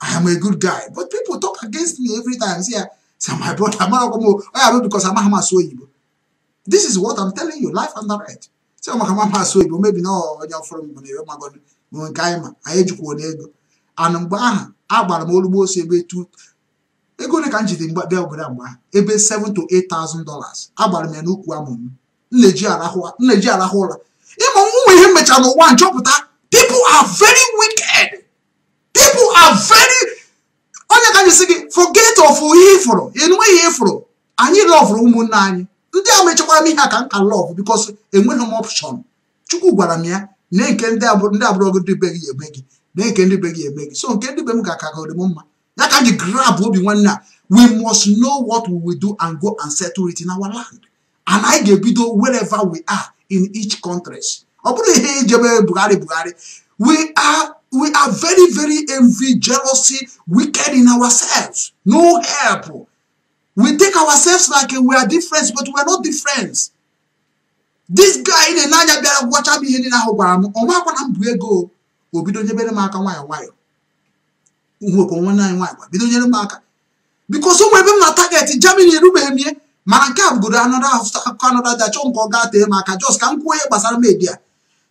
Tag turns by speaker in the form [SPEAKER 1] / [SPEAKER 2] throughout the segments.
[SPEAKER 1] I am a good guy. But people talk against me every time. See, I say, my brother, I'm not going to oh, because I'm not so evil. This is what I'm telling you, life and right. Say, I'm not so evil. Maybe no, when you're from Money, when Kaima, I educate you. And I'm going agbara m olugbo osi ebe tu ego ole ka m jide mgbe bịa obodo mgba ebe 7 to 8000 dollars agbara m ya n'ukwu amụ m nneji arahụ ụra ịma nwa ihe mmecha n'ụwa nchọpụta people are very wicked people are very onye ka anyị si gị forget of ihe ịfụrụ enweghị ịfụrụ anyị lọvụrụ ụmụnne anyị ndị a mechekwara m ihe a ka m ka lọv bikos enweghị m ọpshọn chukwu gwara m ya na nke ndị abụrụ gị dị be gị eme gị na nke ndị be gị eme gị so nke ndị be m ga-akagori m mma ya ka m grab obi nwanne a we must know what we will do and go and settle it in our land and anyị ga-ebido wherever we are in each countries ọ bụrụ ihe ijebe Buhari Buhari we are we are very, very envy, jealousy, wicked in ourselves. No help. We take ourselves like we are different, but we are not different. This guy in the naja be gwọcha m ihe in ahụ gwara m ọnwa akwana m bụ ego o bido don't m aka nwayọọ nwayọọ nwekwa nwanne anyị nwaanyị bido nyere m aka bikos Because some ebe m na target Germany erubeghị m ihe mana nke a bụgoro anọdụ akụkọ anọdụ aja chọọ nke ọ gaa tee m aka jos ka media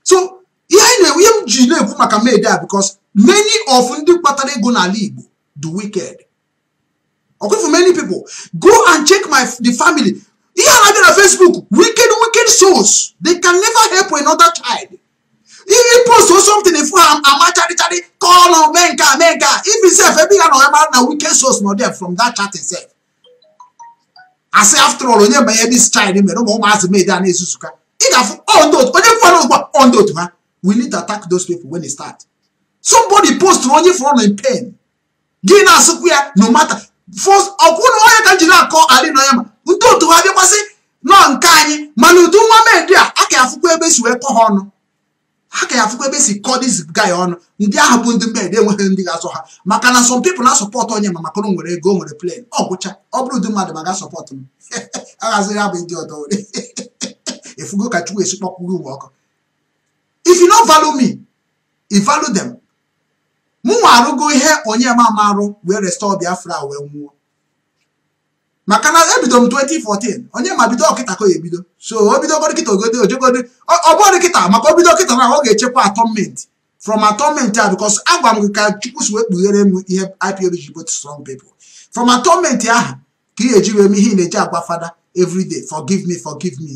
[SPEAKER 1] so ihe anyị na-enwe ihe m ji na-ekwu maka made a because many of ndị kpatara ego n'ala Igbo the wicked ọkụfụ many pipo go and check my the family ihe a na Facebook wicked wicked souls they can never help another child if post or something if ama amacharịcharị call on mee nke a mee nke a if itself ebe ya na onye mara na wicked souls nọ there from that chat itself asị after all onye banye this child mere ụmụ ụmụazị made a na-ezuzuka ị ga-afụ onye fọrọ ugbu a ondotu ha we need to attack those people when they start somebody post onye fọrọ in pain gị na-asụkwu ya no matter first ọkwụ onye ka jiri akọ adị na ya ma ndị otu ha bịakwasị nọ nke anyị mana udu nwa medi a aka ya afụkwa ebe e si wee kọ ha ọnụ aka ya afụkwa ebe e si kọ dis guy ọnụ ndị ahụ bụ ndị medi enweghị ndị ga-asọ ha maka na some people na-asọpọtụ onye ma maka na nwere ego nwere plan ọ gwụcha ọ bụrụ ụdị mmadụ ma ga sọpọt m aghazi ya bụ ndị ọdọ efugo ka chukwu esikpọkwugo ụwa ọkụ if you no value me you value them mụnwa arụgo ihe onye arụ wee restore biafra wee nwụọ maka na ebido m 2014 onye ma bido ọkịta ka ebido so o bidogoro kịta ogodo ojogodi kịta maka obido bido kịta na ọ ga-echekwa atọmenti from atọmenti a because agwa m gị ka chukwu si wee kpughere m ihe ipo ji strong baby from atọmenti ahụ ka ị ga-eji wee m ihe ị na-eji agwa fada every day forgive me forgive me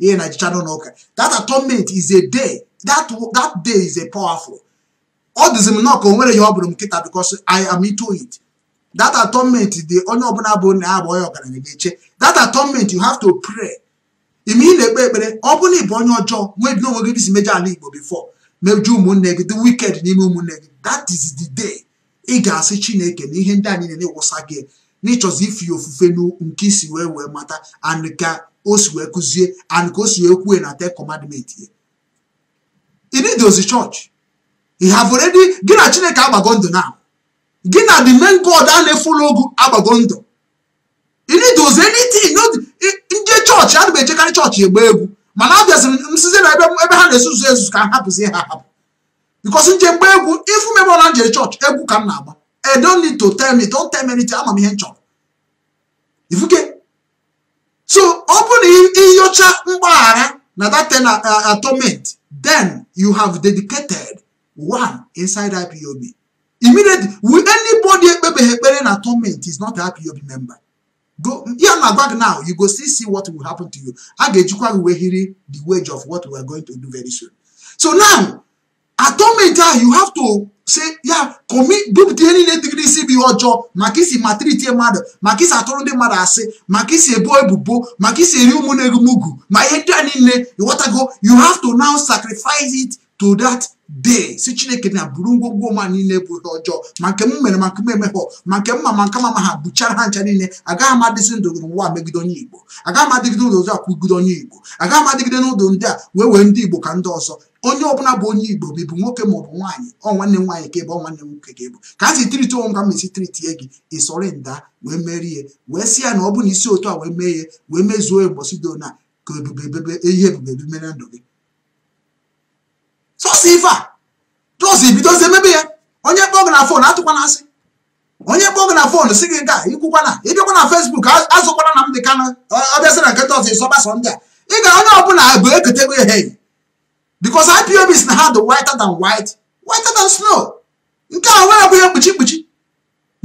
[SPEAKER 1] ihe na jicha n'ụlọ ụka that atonement is a day that, that day is a powerful ọ dịzi m nọọ ka o nwere ya m nkịta because i am into it that atonement dị onye ọbụla bụ na ya bụ onye ọgaranya ga-eche that atonement you have to pray ime ị na-ekpe ekpere ọ bụrụ na ịbụ onye ọjọọ nwee bi n'onwe gị dịsi mejọ before meju ụmụnne gị the wicked n'ime ụmụnne gị that is the day ị ga-asị chineke na ihe ndị anyị na-ewụsa gị n'ịchọzi ife ya ofufe nke isi wee wee mata and ka o si wee kụzie and ka o si wee kwue na te commandment ya inid ozi chọọchị ị have already gị na chineke agbago ndụ na gị na the main god a na-efula ogu agbago ndụ inid ozi anything ndị chọọchị ana m echekarị chọọchị egbe egwu mana abịaziri m sizi na ebe ha na-esuzu ezuzu ka ha hapụzie ha hapụ because nje mgbe egwu ifu mebe na njere chọọchị egwu ka m na-agba I don't need to tell me. Don't tell me anything. I'm a man. If you get so open your mgbaghara na that ten uh, uh, atonement, then you have dedicated one inside IPOB. Immediately, will anybody ekpere na atonement is not an IPOB member. Go here na bag now. You go see see what will happen to you. A ga-ejikwa wee hiri the wage of what we are going to do very soon. So now atomic ah you have to say yeah. commit group dị niile dịgịrịsị bụ ihe ọjọọ maka isi matriti mmadụ maka isi atụrụ ndị mmadụ asị maka isi ebo ebubo maka isi eri ụmụ na-egumugwu ma ihe ndị a niile ịghọtago you have to now sacrifice it to that day si chineke na buru ngwongwo ma niile bụ ihe ọjọọ ma nke m mere maka nke m emeghọ ma nke m ma ma nke mama ha buchara ha ncha niile agaghị m adịzi ndụ n'ụwa megide onye igbo agaghị m adịgide n'ụlọ ọzọ akwụgide onye igbo agaghị m n'ụdụ ndị a wee wee ndị igbo ka ndị ọzọ onye ọbụla bụ onye igbo ma bụ nwoke ma ọ bụ nwaanyị ọ nwanne m nwaanyị ka ebe ọ nwanne m nwoke ka ebu ka a si tiriti onwe m esi tiriti e gị ịsọrị nda wee merie wee sị ya na ọ bụ na isi otu a wee mee ya wee mezuo ya mbọsi dona ka ebube ebebe ehi ebube ebimere ndụ gị chọsi ife a chọsi bidozi emebe ya onye kpọọ gị na fon atụkwa na asị onye kpọọ gị na fon si gị nke a ikwukwa na ịbịakwa na fesbuk azụkwara na m dị kana ọbịasị na nketa ọzọ ịsọgbasọ ndị a ị ga onye ọbụla bụ eketego ehe because IPOB is na ha dị whiter than white whiter than snow nke a nwere abụghị mkpuchi mkpuchi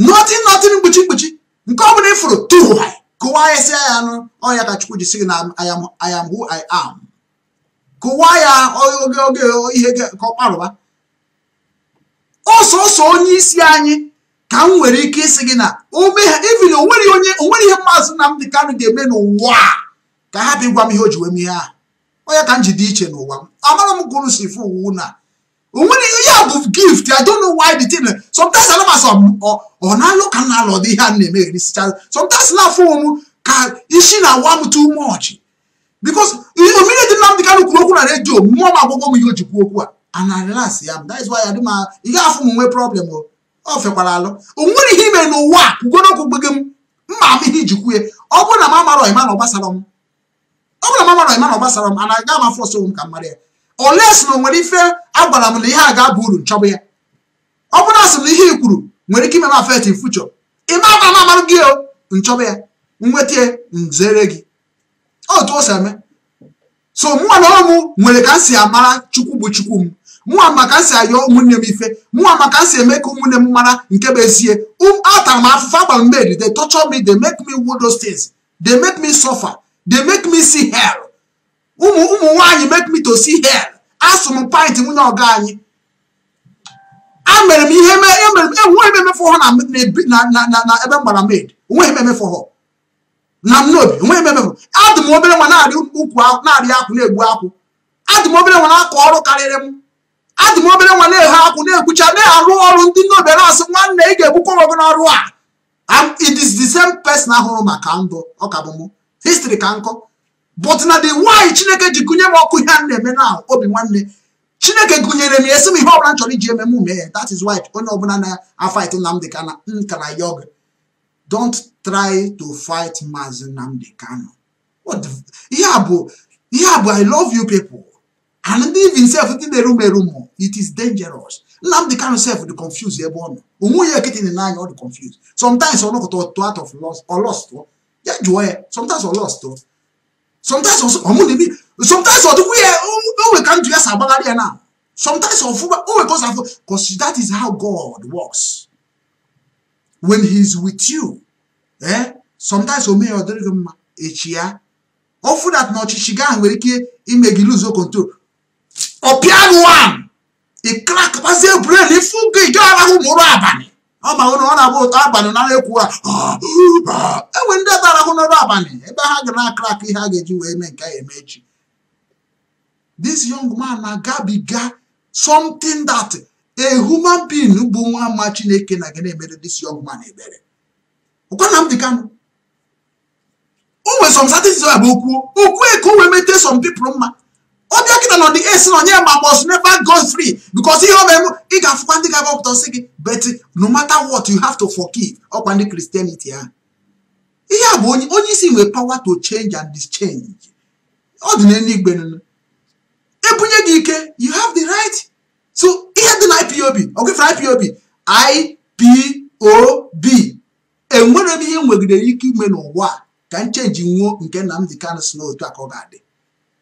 [SPEAKER 1] nothing nothing mkpuchi mkpuchi nke ọbụla ịfụrụ tụwa kụwa ya si ya anụ ọnya ka Chukwu ji gị na I am who I am kụwaa ya oge oge ihe ka ọ kparụba ọsọsọ onye isi anyị ka m nwere ike ịsị gị na ome ha evin onwere onye onwere ihe maazị Nnamdị Kanụ ga-eme n'ụwa ka ha bịa gwa m ihe o ji wee mee ha onye ka m ji dị iche n'ụwa m amara m gụrụ unu si fụ uwu na onwere ya bụ gift I don't know why the thing sometimes alamas ọ na-alụ ka m na-alụ ọdị ihe a na-eme erisicha sometimes na-afụ m ka isi na awa m too much because omere dị Nnamdị Kanụ kwuru okwu na redio mmụọ m agbụgbọ m ihe o ji okwu a ana ya that is why adị m ị gaghị afụ m nwee problem o fekwara alụ o nwere ihe ime n'ụwa a kwugoro okwu gbege m mma ama ihe iji kwue ọ bụrụ na m amara ọima na ọgbasara m ọ bụrụ na m amara na ọgbasara m ana aga m afọ ọsọ m ka mara ya oles na o nwere ife agwara m na ihe a ga-aba uru nchọbụ ya ọ bụrụ na asị na ihe i kwuru nwere ike ime m afet fuchọ ị ma ama na amarụ gị o nchọbụ ya nweta nzere gị otu o si eme so mụnwa na ọrụ m nwere ka m amara chukwu bụ chukwu m mụnwa maka m ayọ ụmụnne m ife mụnwa maka m eme ka ụmụnne m mara nke bụ ezie um, atara m afụfụ agbara mmeri they torture me they make me do those things they make me suffer they make me see hell ụmụ ụmụ nwaanyị make me to see hell asụ m pint nwunye ọga anyị a mere m ihe enweghị e e, m emefu ha na ebe m gbara med onweghị m emefu ha na nnobi enweghị ebe bụ adị m obere nwa na-arị ukwu na akwụ na-egbu akwụ adị m obere nwa na-akọ ọrụ karịrị m adị m obere nwa na-eghe akwụ na-ekwucha na-arụ ọrụ ndị nnobi na-asị nwanne ị ga-egbukwa ọgụ n'ọrụ a it is the same person ahụrụ maka ndụ ọka bụ m history ka nkọ but na the why chineke ji gụnye m ọkụ ihe a na-eme na obi nwanne chineke gụnyere m esi m ihe ọbụla m chọrọ iji eme m mee that is why onye ọbụla na-afaịtụ Nnamdi Kanu nka na yoga don't try to fight Mazi Nnamdi Kanu what ihe a bụ ihe i love you people and ndị even self the room, erume erumo it is dangerous Nnamdi Kanu self the confused ebe ọ getting in line all the confused sometimes ọ not ọtụ out of lost or lost ọ ya sometimes ọ lost ọ sometimes ọmụ na-ebi sometimes ọ dịkwa ya onwe ka ndụ ya si agbagharị sometimes ọfụma onwe Oh, ọ si afụ because that is how God works. when he is with you ee eh? sometimes o meghị ọ gị mma echi ya ofu dat na ọchịchị gị ahụ nwere ike ime gị luzo control ọpịanụ wan ịkrakpazie bren ifu gị ga arahụ ma mụrụ abalị ọ ma ụnụ ọ na-agba ụtọ abalị na ekwu ụra ah, ah, ah. enwe ndị ọta arahụ n'ọrụ abalị ebe ha ga na-akrak ihe a ga-eji wee mee nke a eme echi this young man na-agabiga something that a human being bụ nwa ama chineke na gị na-emere this young man ebere ọkwa na m dị kanụ o nwere some certain a bụ okwu okwu eke o wee mete some people mma ọ bịa kịta na ọ dị esi na onye ma must never go free because ihe ọ mere ị ga-afụkwa ndị ga-agbapụta sị gị but no matter what you have to forgive ọkwa ndị Christianity ha ihe a bụ onye isi nwere power to change and dischange ọ dị n'eluigwe ebunye gị ike you have the right to ipob ọ gụfe ipob ipob enwere m ihe nwegidere ike ime n'ụwa ka m chenji nwuo nke Nnamdi kan si n'otu a ka ọ ga-adị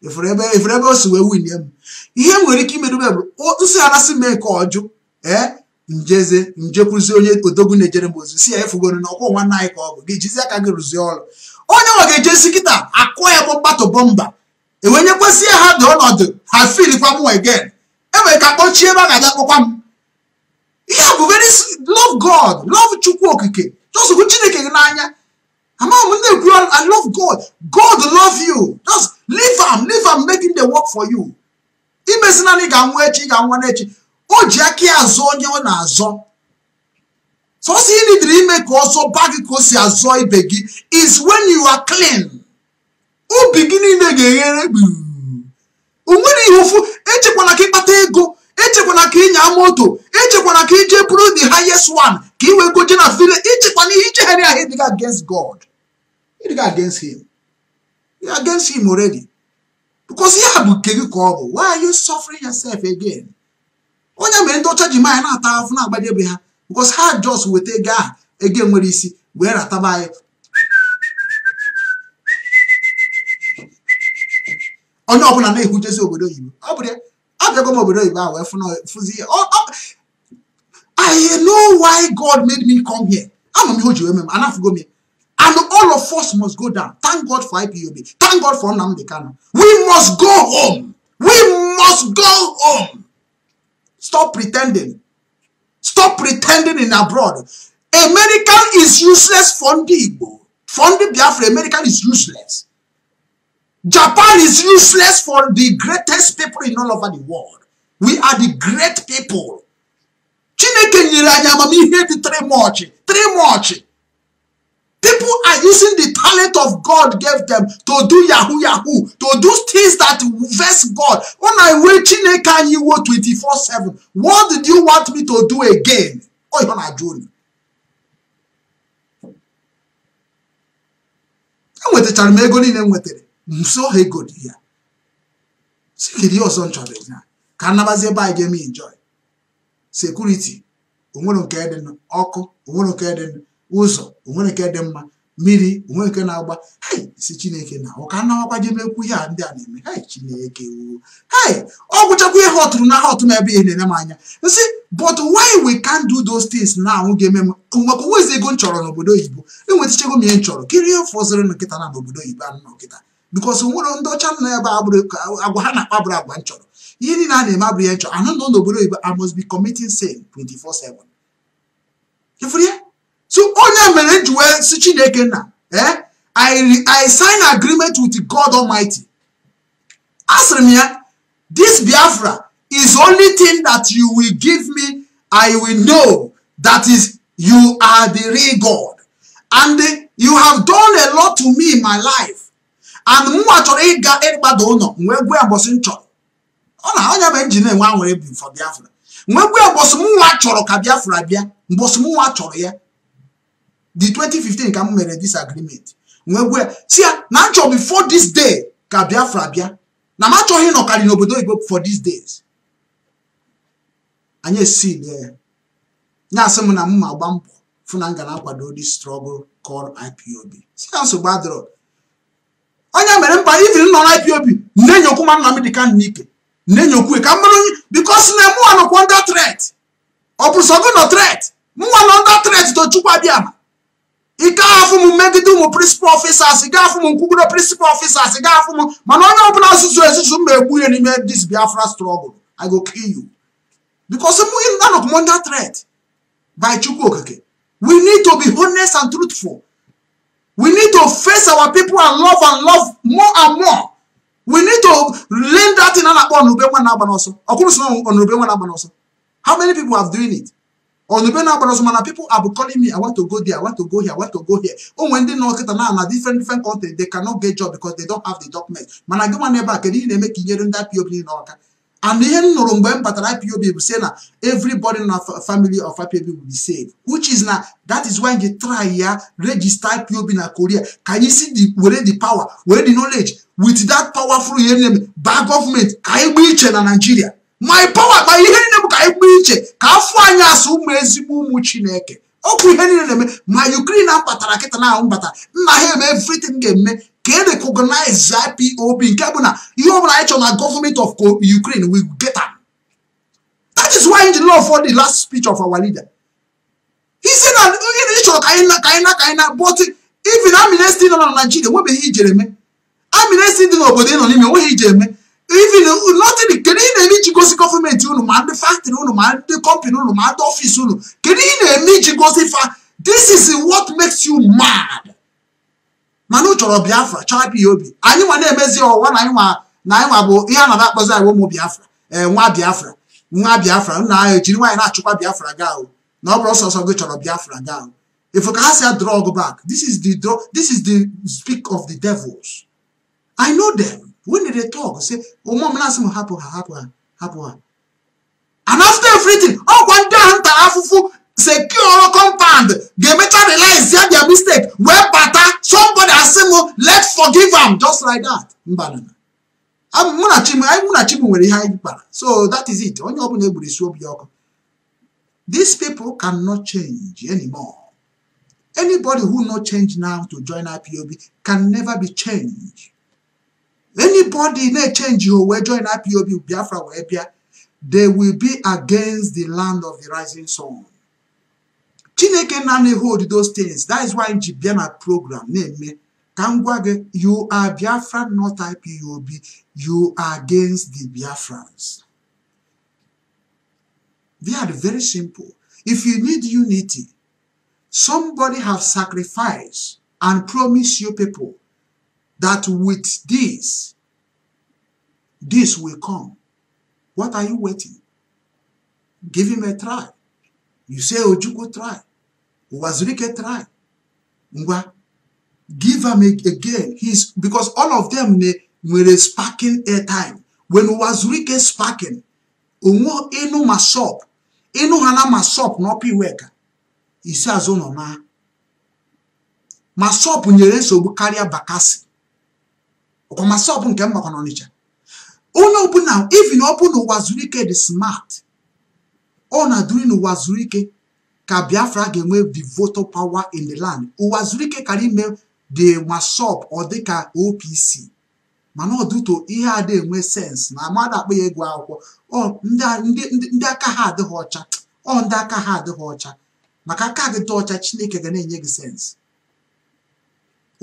[SPEAKER 1] efere ebe o si wee winie m ihe nwere ike imedobe bụ nsị anasị m nke ọjụ ee njeze njekwuzie onye odogwu na-ejere m ozi si ya efugoro na ọkwọ nwanne anyị ka ọ bụ gị jizi aka gị rụzie ọrụ onye ọ ga-ejezi kịta akụọ ya bụ mkpatụ bọmba enwenyekwasị ya ha dị ọnọdụ ha filikwa m wegen enwere ka kpọchie ebe a ga-abịa kpọkwa m ihe bụ very love God love Chukwu okike just hụ Chineke gị n'anya Amam nne ndị ekwu I love God God love you just leave am leave am making the work for you imezi naanị ga echi ga-anwa n'echi o ji aka ya azụ onye ọ na-azọ sọsọ ị nidiri ime ka ọzọ ba gị ka o si azụọ ibe gị is when you are clean obi gị niile ga-eghere gburu Onwere ihe echekwala ka ịkpata ego ichekwana ka ịnya moto ichekwana ka ije bụrụ the highest one ka ị wee goje na file ichekwana ihe ichegharị ahụ ịdịga against God ịdịga against him you against him already because ya bụ nke gị ka ọ bụ why are you suffering yourself again onye mere ndị ọcha ji manya na-ata afụ na-agbadebe ha because ha just weta ego ahụ ego nwere isi wee rataba anyị
[SPEAKER 2] onye ọbụla na-ehujezi
[SPEAKER 1] obodo oyibo ọ bụrụ ya abẹ́kọ́ mọ̀ bẹ̀rẹ̀ ìgbà àwẹ̀ fún sí I know why God made me come here àmọ́ mi ò jẹ́ mẹ́mọ́ anáfígọ́ mi and all of us must go down thank God for IPOB thank God for Nnamdi Kanu we must go home we must go home stop pretending stop pretending in abroad American is useless for ndị Igbo for ndị Biafra American is useless. Japan is useless for the greatest people in all over the world. We are the great people. Chineke nyere anyị amamihe dị three much People are using the talent of God gave them to do yahoo yahoo, to do things that vex God. Una wey Chineke anyị iwo 24/7. What did you want me to do again? oi. ihe na-ajụ unu. Enwetachara m ego niile m nwetara. nso ha dị ya si ihe ọzọ nchọrọ ya ka anabazi ebe anyị ga-eme enjoy sekuriti onwere nke dị ọkụ onwere nke dị ụzọ onwere nke dị mma mmiri onwere nke na-agba hei si chineke na ụka nawakwa jemekwu ihe a ndị a na-eme hei chineke wuo hei ọ gwụchakwa ihe ọtụrụ na aha ọtụ na ebe ihe na-enye m anya nsị but why we can't do those things na anwụ ga-eme m maka onwezi ego m chọrọ n'obodo oyibo enwetichego m ihe m chọrọ kirie fọzịrị nkịta na n'obodo oyibo anụ na nkịta because nwere ndị ọcha nọ ebe agwa ha na-akpa bụrụ agwa nchọrọ ihe niile a na-eme abụrụ ya nchọ anụ nọ n'obodo oyibo I must be committing sin 24/7 ịfụrụ ya so onye mere ji wee si Chineke nna ee eh? I sign agreement with God Almighty a sịrị m ya this Biafra is only thing that you will give me I will know that is you are the real God and you have done a lot to me in my life and mụnwa chọrọ ịga ịgbada ụlọ wee gwe agbọsị m chọrọ ọ na onye bụ njin enwe anwere bi for biafra wee gwe agbọsị mụnwa chọrọ ka biafra bịa mbọsị mụnwa chọrọ ya the 2015 ka m mere disagreement wee gwe si ya na m chọrọ before this day ka biafra bịa na m achọghị ịnọkarị n'obodo igbo for these days anyị esi lie ya na-asị m na m ma gba mbọ fụ na m ga na-akwado this struggle called IPOB si ya nsogbu adịrọ onye mere mba ivin nọ na IPOB na-enyokwu ma Nnamdi Kanu n'ike na-enyokwu ka mmadụ because na mụnwa nọkwa under threat ọ bụ sọgụ nọ threat mụnwa nọ under threat to Chukwu Abịama ike afụ m megide ụmụ principal officers ga afụ m nkwugoro principal officers ga afụ m mana onye ọbụla asụsụ ezuzu m na-egbu ihe n'ime this Biafra struggle I go kill you because mụ anọkwa under threat by Chukwu Okike we need to be honest and truthful We need to face our people and love and love more and more. We need to learn that in Anakpo Onube Wanabanoso. Okunusuno Onube Wanabanoso. How many people have doing it? Onube Wanabanoso, man, people are calling me, I want to go there, I want to go here, I want to go here. Oh, when they know that now different, different country, they cannot get job because they don't have the document. Man, I go one neighbor, can you make that POP in Orca? and ihe m nụrụ mgbe m batara IPOB bụ say na everybody na family of IPOB will be saved which is na that is why you try ya register IPOB na Korea ka anyị si the were the power were the knowledge with that powerful ihe nne m baa ka anyị gbaa iche na Nigeria my power kpa ihe nne m ka anyị gbaa iche ka afọ anyị asụ ụmụ ezigbo ụmụ Chineke okwu ihe na-eme ma Ukraine kpatara kịta na ahụ mbata nna ahịa eme everything ga-eme ka e recognize IPOB nke bụ na ihe ọbụla anyị chọrọ na government of Ukraine will get am that is why the law for the last speech of our leader he said na ị oh, chọrọ ka anyị na ka anyị na ka anyị na but even amnesty nọ na Nigeria nwebeghị ijere eme amnesty dị n'obodo ị nọ n'ime nweghị ije eme even nothing kedu ị na-eme iji gosi gọọmenti unu ma ndị factory unu ma ndị company unu ma ndị ọfịs unu kedu ị na-eme iji gosi fa this is what makes you mad mana ụ chọrọ biafra chọrọ obi anyị nwa na-emezi ọwa na anyịnwa na anyịnwa bụ ihe a na akpọzi anyị ụmụ biafra ee eh, nwa biafra nwa biafra nna anyị ejiri nwaanyị na-achụkwa biafra ga ahụ na ọ bụrụ sọsọ gị chọrọ biafra ga ahụ ifu ka ha si drug back this is the draw this is the speak of the devils i know them when they talk say ụmụ oh, m na-asị m hapụ ha hapụ ha hapụ ha and after everything ọkwa ndị ahụ ntara afụfụ secure ọ̀rọ̀ compound Demeter realize their their mistake wẹ́ẹ́ pata somebody asimo let's forgive am just like that mbanana mụ na chimu anyị mụ na chimu nwere ihe anyị kpara so that is it onye ọbụla egburu isi obi ọkụ these people cannot change anymore anybody who no change now to join IPOB can never be changed anybody na change ho wee join IPOB Biafra wee bịa they will be against the land of the rising sun chineke na-anaghị hold those things that is why m ji bịa na program na-eme ka m gwa gị you are biafran not ipob you are against the biafrans they are very simple if you need unity somebody have sacrificed and promise you people that with this this will come what are you waiting give him a try you say ojukwu try ụwa zuru ike try ngwa give am again his because all of them nwere sparking airtime when ụwa zuru ike sparking onwe ịnụ ma shop ịnụ ha na ma shop na ọpa iweka isi azụ nọ na ma shop nyere nsogbu karịa bakasi ọkwa ma shop nke mmakwa n'Ọnịcha onye ọbụla even ọ bụ na ụwa zuru ike dị smart ọ na-adụri n'ụwa zuru ike ka Biafra ga-enwe the voter power in the land ụwa zuru ike kara ime the wasop ọ dịka OPC mana ọdụtụ ihe ada enwe sens na mmadụ akpa ya ego akwụkwọ ndị aka ha adịghị ọcha ọ ndị aka ha adịghị ọcha maka aka gị dị ọcha chineke ga na-enye gị sensị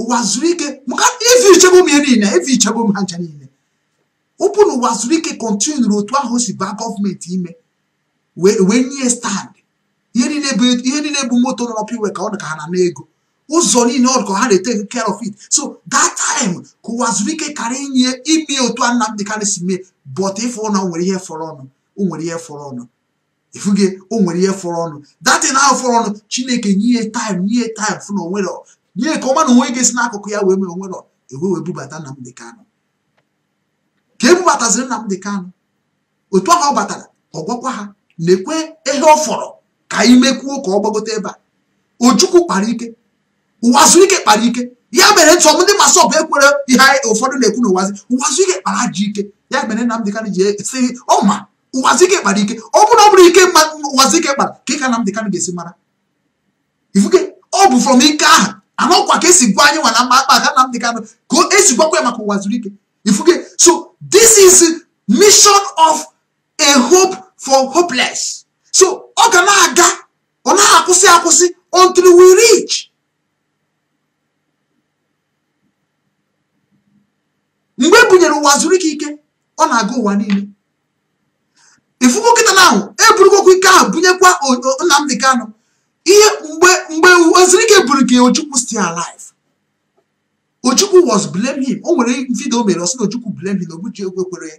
[SPEAKER 1] ụwa zuru ike maka ife ichebe m ya niile ife ichebe m ha ncha niile ụpụ na ụwa zuru ike kọntinu otu ahụ si baa gọọmenti ime wee nye stand ihe niile bụ moto nọ n'ọpụ iwe ka ọ dị ka ha na n'ego ụzọ niile ọ dị ka ha na-ete care of it so that time ka ụwa zuru ike karị inye ime otu a Nnamdi Kanu si mee but ịfụ na nwere ihe fọrọ ọnụ o nwere ihe fọrọ ọnụ ifuge o nwere ihe fọrọ ọnụ datin ahụ fọrọ ọnụ Chineke nye time nye time fụ na onwere nye ka ọma na onwe gị si n'akụkụ ya wee mee onwere ewe wee bubata Nnamdi Kanu ka ebubataziri Nnamdi Kanu otu ahụ ọ batara ọ gwakwa ha na-ekwe ihe ọ fọrọ anyị mekwuo ka ọ gbagote ebe a ojukwu kpara ike ike kpara ike ya mere nsọm ndị masọp ekwere ihe ụfọdụ na-ekwu na ụwazi ike kpara ji ike ya mere Nnamdi Kanu ji esi ọma ike kpara ike ọ bụrụ ọ bụrụ ike ma ike kpara ka ịka Nnamdi Kanu ga-esi mara ifuke ọ bụ from ike ahụ anọkwa ka esi gwa anyị nwa na mma akpa aka Nnamdi Kanu ka esi gwakwa ya maka ụwazụike ifuke so this is mission of a hope for hopeless so ọ ga na-aga ọ na-akwụsị akwụsị until we reach mgbe e bunyere ụwa zuru ike ike ọ na-aga ụwa niile ifugo nkịta ahụ eburugokwa ike ahụ bunyekwa Nnamdị kano ihe mgbe mgbe ozurike buru gị Ojukwu still alive Ojukwu was blame him o nwere vidio o mere ọsị na Ojukwu blame him na Ogbujigwe kwere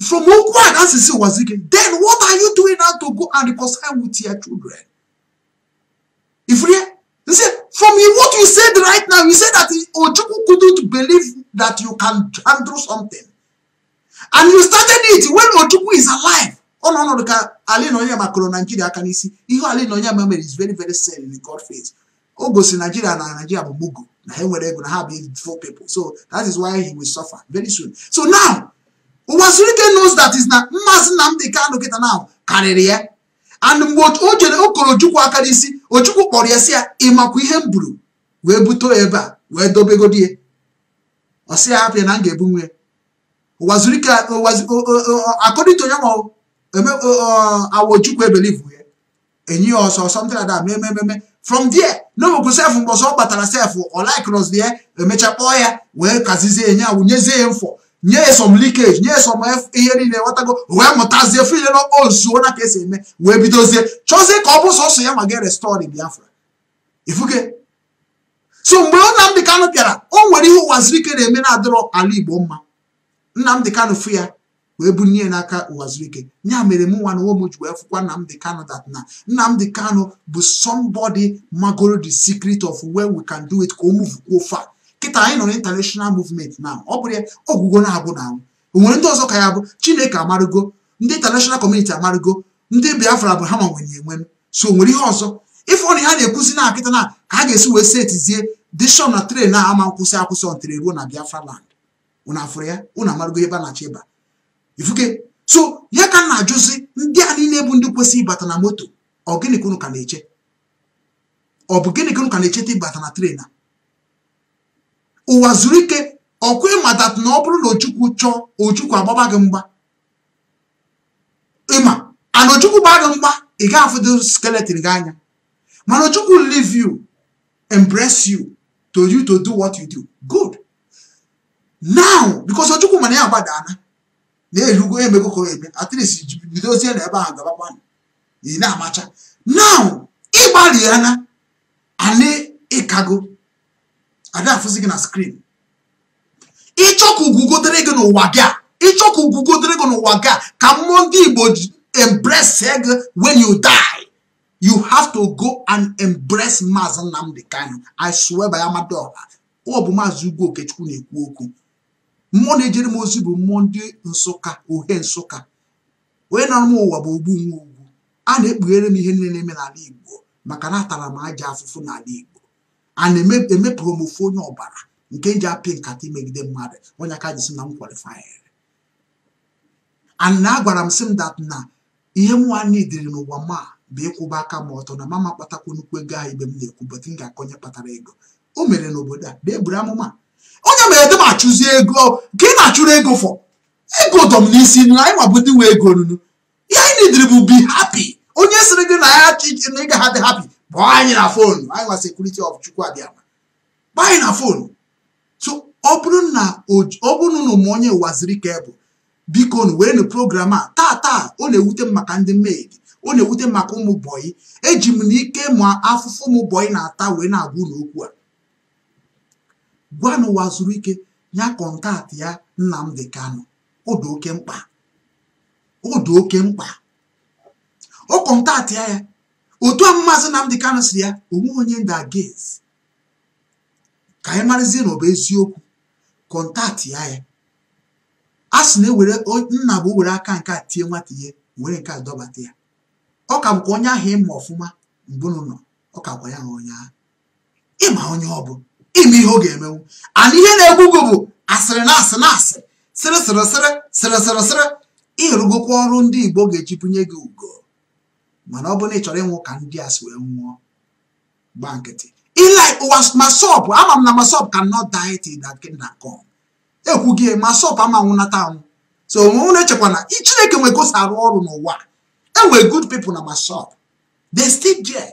[SPEAKER 1] From who and Asisi was again, then what are you doing now to go and reconcile with your children? If we you see, from what you said right now, you said that Ojuku couldn't believe that you can handle something. And you started it when Ojuku is alive. Oh no, no, ka Ali Nonya ma kụrụ naijiria aka n'isi ihe ala ịnọnya ma is very very sad in God face o gosi naijiria na naijiria bụ mugu na ha nwere ego na ha bụ people so that is why he will suffer very soon so now ụwazirike knows that is na mmasị Nnamdi Kanu kịta na karịrị ya and mgbe o jere okoro Ojukwu aka n'isi kpọrọ ya si ya ịmakwa ihe m buru wee buto ebe a wee dobegodi ya ọ sị ya hapụ ya na m ga-ebu nwe ụwazirike akọdịta onye awa Ojukwu ebelivu ya enyi ya ọsọ something like that mee ememe from there n'obogo sef mgbe ọzọ ọ kpatara sef ọ ya emecha kpọọ ya wee kazizie ya ya wụnyezie ya mfọ nye some leakage nye some ihe niile nwetago wee mụtazie file na ozuo na ka esi eme wee bidozie chọzie ka ọ bụ sọsọ ya ma gị restọri Biafra ifuge so mgbe Nnamdị Kanụ bịara o nwere ihe ụwazirike na-eme na-adịrọ ala Igbo mma Nnamdị Kanụ fụ ya wee bunye n'aka ụwazirike ya mere m nwa na nwe m ji wee fụkwa Nnamdị Kanụ that na Nnamdị Kanụ bụ somebody magoro the secret of where we can do it ka o muvukwuo fa kịta anyị nọ na international movement na ọ bụrụ ya ọgwụgwọ na-abụ na anwụ o nwere ndị ọzọ ka ya bụ chineke amarụgo ndị international community amarụgo ndị biafra bụ ha ma nwenye enwenu so o nwere ihe ọzọ ife na ha na-ekwuzi na akịta na ka a ga-esi wee setizie dishon na tren na ama nkwụsị akwụsị ọntere ruo na biafra land unu afụrụ ya unu amarụgo ebe a na-achọ ịba ifuke so ya ka na ajụzi ndị a niile bụ ndị kwesị ịbata na moto ọ gịnị ka ka na-eche ọ bụ gịnị ka na-echeta ịbata na tren ụwa zuru ike ọkwa ịmatat na ọ bụrụ na ochukwu chọọ ochukwu agbaba gị mgba ịma ana ochukwu gba gị mgba ị gaghị afụdo skeleton gị anya mana ochukwu leave you embrace you to you to do what you do good now because ochukwu mana ya agbadana na-erugo emego ka eme at least bidozie na ebe ahụ gabakwa ị na-amacha now ịgbalị ya na anị ịkago abịa afụzi gị na skrin ịchọ ka ugugodere gị n'ụwa gị a ịchọ ka ugugodere gị n'ụwa gị a ka mmụọ ndị igbo embrace gị when you die you have to go and embrace maazị Nnamdi Kanu I swear by Amadioha ọ bụ maazị Ugwu Okechukwu na-ekwu okwu mmụọ na-ejere m ozi bụ mmụọ ndị nsụka ohe nsụka onye nọrọ m ụwa bụ ogbu nwa ugwu a na-ekpughere m ihe niile na-eme n'ala igbo maka na atara m aja afụfụ n'ala igbo a na-emepụrụ m ofu onye ọbara nke ji apị nkata imegide mmadụ onye aka ji sị na m kwalifayere and na agwara m sị m dat na ihe m nwanne dịrị n'ụwa ma bụ ịkwụba aka m ọtọ na mama kpatakwa nnukwu ego ahụ ibe m na-ekwu bọtụ m ga-akọ onye kpatara ego o mere n'obodo a bụ eburu amụma onye mere dị m achụzi ego ka ị na-achụrụ ego fọ ego dọm n'isi nụ anyị nwabụ ndị nwe ego nunu ihe anyị na bụ bi hapi onye sịrị gị na ya ị ga ha dị hapi kpọọ anyị na fonu anyị nwa sekuriti of chukwu abịama kpọọ anyị na fonu so ọ bụrụ na ụmụ onye ụwa ziri ka bụ biko nu werenụ program a taa taa ọ na-ewute m maka ndị mmehie ọ na-ewute maka ụmụ bọyị eji m ike ma afụfụ ụmụ bọyị na-ata wee na-agwa ụlọ okwu a gwa n'ụwa zuru ike nya kọntaktị ya Nnamdi Kanu ọ dị oke mkpa ọ oke mkpa ọ kọntaktị ya ya otu a na mdị Kanu siri ya onwe onye ndagezi ka anyị marazie na ọ bụ eziokwu kọntaktị ya ya a sị na-ewere nna bụ were aka nke a tie nwata ihe were nke a dọbata ya ọ ka bụkwa onye ahụ ịma ọfụma mbụ nọ ọ ka kwa ya ha onye ahụ ịma onye ọ bụ ime ihe ọ ga-emenwu ana ihe na-egbu gị bụ asịrị na asị na asị sịrị sịrị sịrị sịrị sịrị sịrị ịrụgokwa ọrụ ndị Igbo ga-echipụnye gị ugo mana ọ bụrụ na ị chọrọ ịnwụ ka ndị a si wee nwụọ gba nkịtị ilike ụwa masọp ama m na masọp ka nọ dieti na kingdom ekwu gị masọp ama nwụnata anwụ so onwe unu echekwa na chineke nwere gosi arụ ọrụ n'ụwa enwe good people na masọp they still there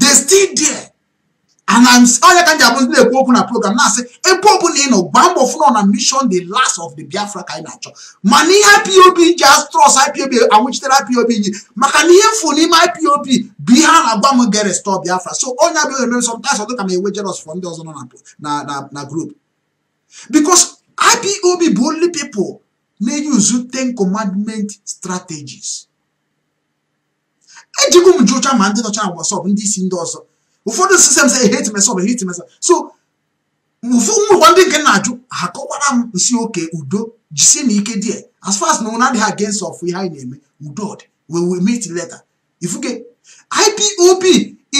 [SPEAKER 1] they still there onye ka m ji abụzi na-ekwu okwu na program na-asị ebe ọbụla ị nọ gbaa mbọ fụnọ na mission the last of the biafra ka anyị na-achọ mana ihe ipob ji astrọs ipob anwụchitere ipob nyi maka na ihe mfu n'ime ipob bụ ihe a na-agwa m ga restọ biafra so onye abịaghị eme sometimes ọ ka ma enwe jeros fọ ndị ọzọ nọ na na group because ipob bụ only people na-eyuzu ten commandment strategies ejigwo m jụcha ma ndị nọcha na wasọp ndị isi ndị ọzọ ụfọdụ sistem say eh, hate myself eh, hate myself so ụmụụwa ndị nke na-ajụ ha kọwara m nsị oke udo jisie na ike die as far as na ụna adịghị against of ihe anyị na-eme udo dị we will meet later ifuke IPOB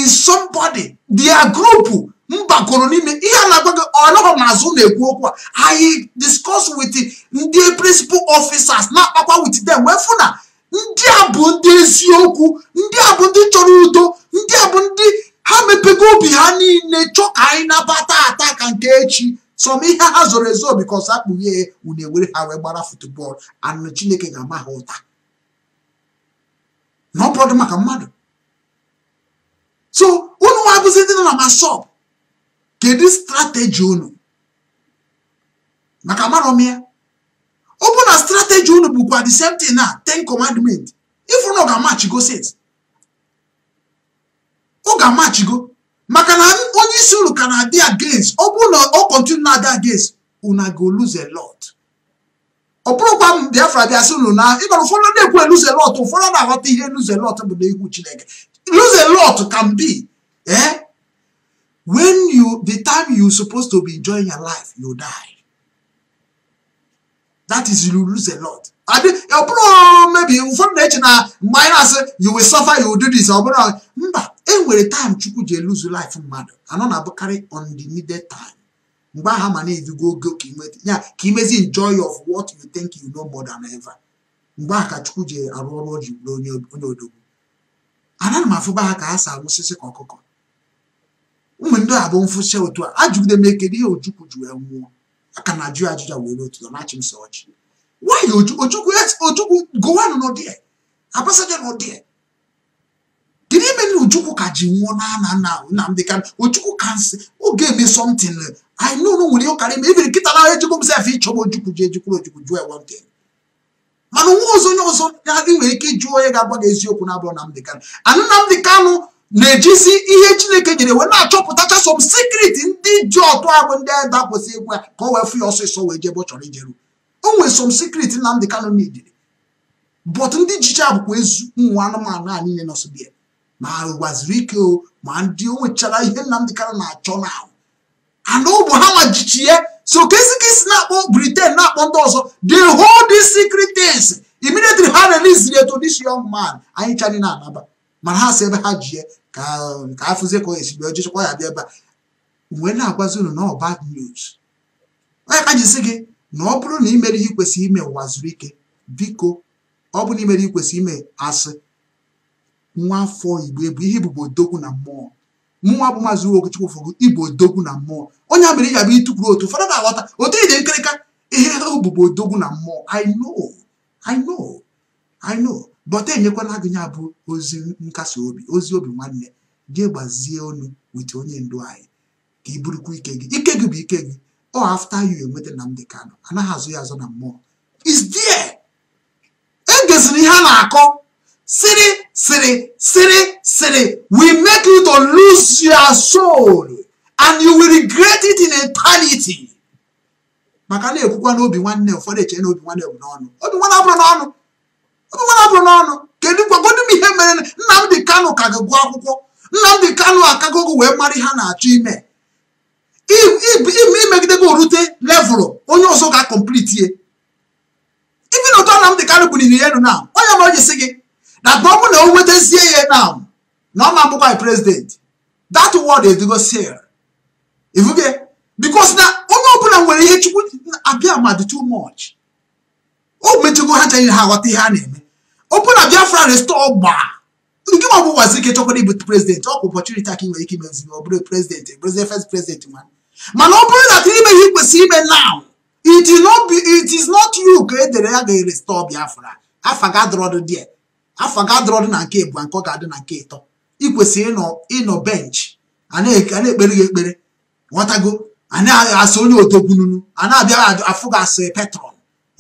[SPEAKER 1] is somebody their group mbakọrọ n'ime ihe a na-agwa gị ọlọrọ n'azụ na-ekwu okwu a anyị discuss with ndị principal officers na-akpakwa with them wee fụ na ndị a bụ ndị eziokwu ndị a bụ ndị chọrọ udo ndị a bụ ndị ha mepego obi ha niile chọọ ka anyị nabata ata ka nke echi sọm ihe ha zoro ezo bikos akpụghị unu ewere ha wee gbara futbọọlụ anụ chineke ga-ama ha ụta na ọ maka mmadụ so unu nwa bụzi ndị nọ na masọp kedu strateji unu maka marọ ya ọ bụ na strateji unu bụkwa the same thing na ten commandment ifuru na ọ ga-amachigosit ga-amachigo, maka na onye isi ụlọ ka na-adị against ọ bụrụ na ọ kọntinu na-adị against una go lose a lot ọ bụrụkwa m Biafra bịa sị na ịgọrọ ụfọdụ na-ekwu e lose a lot ụfọdụ na-aghọta ihe lose a lot bụ na egwu Chineke lose a lot can be eh when you the time you supposed to be enjoying your life you die that is you lose a lot ọ bụrụ mebi ụfọdụ na-eche na mgbe anyị na-asị you will suffer you will do this ọ bụrụ mba e nwere taịm chukwu ji eluzu laịf mmadụ anọ na-abụkarị on the needed time mgbe aha ma na-edugo oge ya ka imezi enjoy of what you think you know more than ever mgbe aha ka chukwu ji arụ ọrụ o ji bụrụ onye odogwu anaghị m afụba ha ka ha si arụsịsị ka ọkụkọ ụmụ ndị a bụ mfụsị otu a ajụgide m ekele ihe ojukwu ji wee nwụọ aka na ajụ ajụja wee n'otu nọ na chimsa ọchị nwanyị ojukwu gowanụ n'ụdị abasaja n'ụdị Ojukwu ka ji nwụọ na ana nna Nnamdị Kanu Ojukwu ka nsị oge eme something I know no nwere ụkarị ma ebiri nkịta na ejikwu m sef ịchọba Ojukwu ji ejikwuru Ojukwu jụọ ewe ntị mana nwa ọzọ onye ọzọ ị nwere ike ịjụ onye ga-agba gị eziokwu na-abụrụ Nnamdị Kanu anụ Nnamdị Kanu na-ejizi ihe Chineke nyere wee na-achọpụtacha som sikrit ndị ji ọtụ abụ ndị a dakwụsị egwu ya ka o wee fụ ya ọsọsọ wee jebe ọ chọrọ ijeru o nwere som sikrit Nnamdị Kanu na-ejiri but ndị jicha abụkwa ezu ụmụ anụmanụ a niile nọsọ bịa ma ụgbaziri ike o ma ndị o nwechara ihe nnamdị kara na-achọ na and ụbụ ha nwajichi ya so kesi ka isi na-akpọ Britain na-akpọ ndị ọzọ the hold these secret things immediately ha release ya to this young man anyị chanye na-anaba mana ha si ebe ha ji ye ka afụzie ka ọ esi bịa ya bịa ebe a wee na-agwazi unu na bad news onye ka jisi gị na ọ bụrụ na imere ihe ikwesịrị ime ụwa zuru ike biko ọ bụ na imere ikwesịrị ime asị nwa afọ igbo bụ ihe bụ odogwu na mmụọ mụnwa bụ maazị Okechukwu Ufọlụ Igbo odogwu na mmụọ onye a mere ị ga ịtụkwuru otu ụfọdụ na-aghọta otu ije nkirịka ihe obubo odogwu na mmụọ I know I enyekwala gị nya bụ ozi nkasi obi ozi obi nwanne gị gbazie ọnụ wit onye ndu anyị ka ị bụrụkwa ike gị ike gị bụ ike gị ọ after enweta enweta Nnamdi Kanu anaghị azụ ya azụ na mmụọ is there egeziri ihe a na-akọ city, city, city, city we make you to lose your soul and you will regret it in eternity. maka na-ekwukwa n'obi nwanne ụfọdụ eche na obi nwanne bụ n'ọnụ obi nwanne abụrụ n'ọnụ obi nwanne abụrụ n'ọnụ kedu m ihe mere Nnamdi Kano ka ga-agụ akwụkwọ Nnamdi Kanu akagogo wee mara ha na-achọ ime imegidego orute levụlụ onye ọzọ ga ye ibi na ụtọ kano bụ ya elu na onye ji gị na bụrụ na o wetazie ya na na ọ ma bụkwa prezidenti that word edugo sir ivuge because na onye ọbụla nwere ihe chukwu abịa ma dị too much o metugo ha chaghị ha aghọta ihe a na-eme ọbụla biafra restọ ọgba nke ma bụ gwazi ike chọkwara ịbụ prezidenti ọ kwa ọpọchụniti aka nwere ike imezi ọ bụrụ prezidenti prezidenti e first prezidenti nwanne mana ọ bụrụ na ime ihe kwesịrị ime now it is not you ka edere ya ga-erestọọ biafra afa ga-adọrọdụ die afọ ga-adọrọ dị na nke bụ nke ọ ga-adị na nke ịtọ ị kwesịrị ịnọ bench ana ekpere gị ekpere ghọtago asị onye otogbununu a na-abịaghị afụ gị asị petrol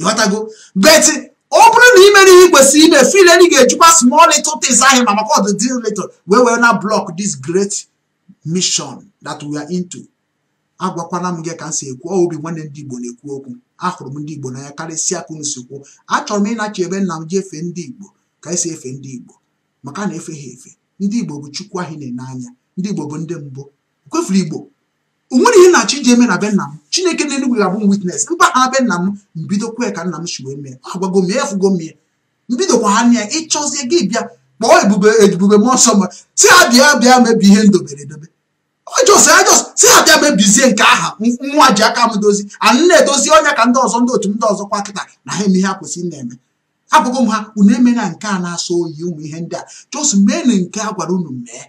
[SPEAKER 1] ghọtago beti ọ bụrụ na ị mere ihe ị kwesịrị ime file na ị ga-ejikwa small little things ahịa ma maka ọdịdị little wee were na block this great mission that we are into agwakwana m gị ka m si ekwu obi nwanne ndị Igbo na-ekwu okwu ahụrụ m ndị Igbo ya karịsịa ka unu si kwuo achọrọ m ịnachi ebe nna m jefee ndị Igbo ka anyị e si efe ndị Igbo maka na-efe ha efe ndị Igbo bụ Chukwu ahụ na-ene anya ndị Igbo bụ ndị mbụ kwefuru Igbo o nwere ihe na-achọ iji eme na be nna m Chineke na-enugwu ga-abụ m witness be nna m mbido ka nna m si wee mee agwago m efugo m ya mbidokwa ha nne ya ịchọzie gị bịa kpọọ ebube ebube mmụọ nsọ m si ha bịa bịa mebi ihe ndoberedobe dobere edobe ọjọs ọjọs si ha bịa mebizie nke aha nwa ji aka m dozi a na-edozi ọnya ka ndị ọzọ ndị otu ndị ọzọ kwa kịta na ha eme ihe ha kwesịrị na-eme abụghị m ha unu emela nke a na-asọ oyi ụmụ ihe ndị a chọsụ meenu nke a gwara unu mee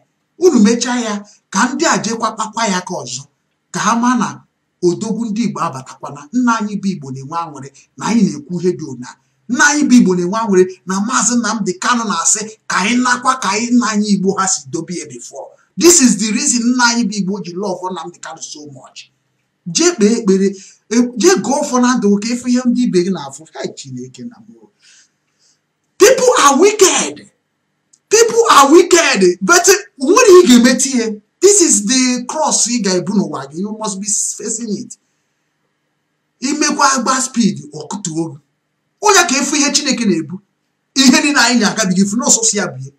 [SPEAKER 1] unu mechaa ya ka ndị a jekwa kpakwa ya ka ọzọ ka ha maa na odogwu ndị igbo abatakwana nna anyị bụ igbo na-enwe aṅụrị na anyị na-ekwu ihe dị ụna nna anyị bụ igbo na-enwe anwere na maazị dị kanụ na-asị ka anyị nakwa ka anyị nna anyị igbo ha si dobe ya this is the reason nna anyị bụ igbo ji love namdị kanụ so mọch jee kpee ekpere e, jee gụọ ụfọ na ndụ ka ịfụ ihe ndị ibe gị na-afụ ha chineke na people are wicked people are wicked but nwere ị ga-emeti ihe this is the cross ị ga-ebu n'ụwa gị you must be facing it imekwa agba speed ọkụtuo gị onye ka efu ihe chineke na-ebu ihe na anyị na-agabiga efu n'ọsọsọ ya bie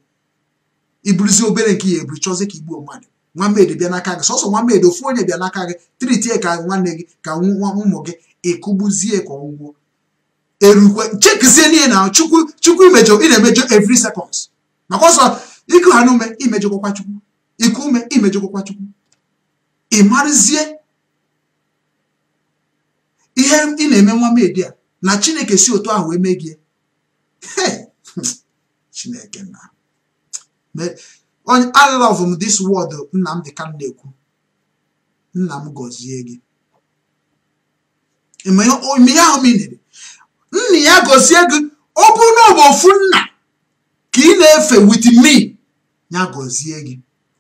[SPEAKER 1] iburuzi obere nke ya eburu chọzie ka igbuo mmadụ nwammedị bịa n'aka gị sọsọ nwammedị ofu onye bịa n'aka gị triti ka nwanne gị ka nwa ụmụ gị ịkụgbuzie ka ọgwụgwọ erukwe chekizie niile na chukwu chukwu imejọ ị na-emejọ every seconds maka ọsọ iku ha n'ume imejọkwa chukwu iku ume imejọkwa chukwu ị ihe ị na-eme nwamedi a na chineke si otu ahụ eme gị chineke na onye I love m this word Nnamdi ka na-ekwu nna m gọzie gị ahụ m ị nna ya gozie gị ọ bụrụ na ọ bụ ofu nna ka ị na-efe with me ya gozie gị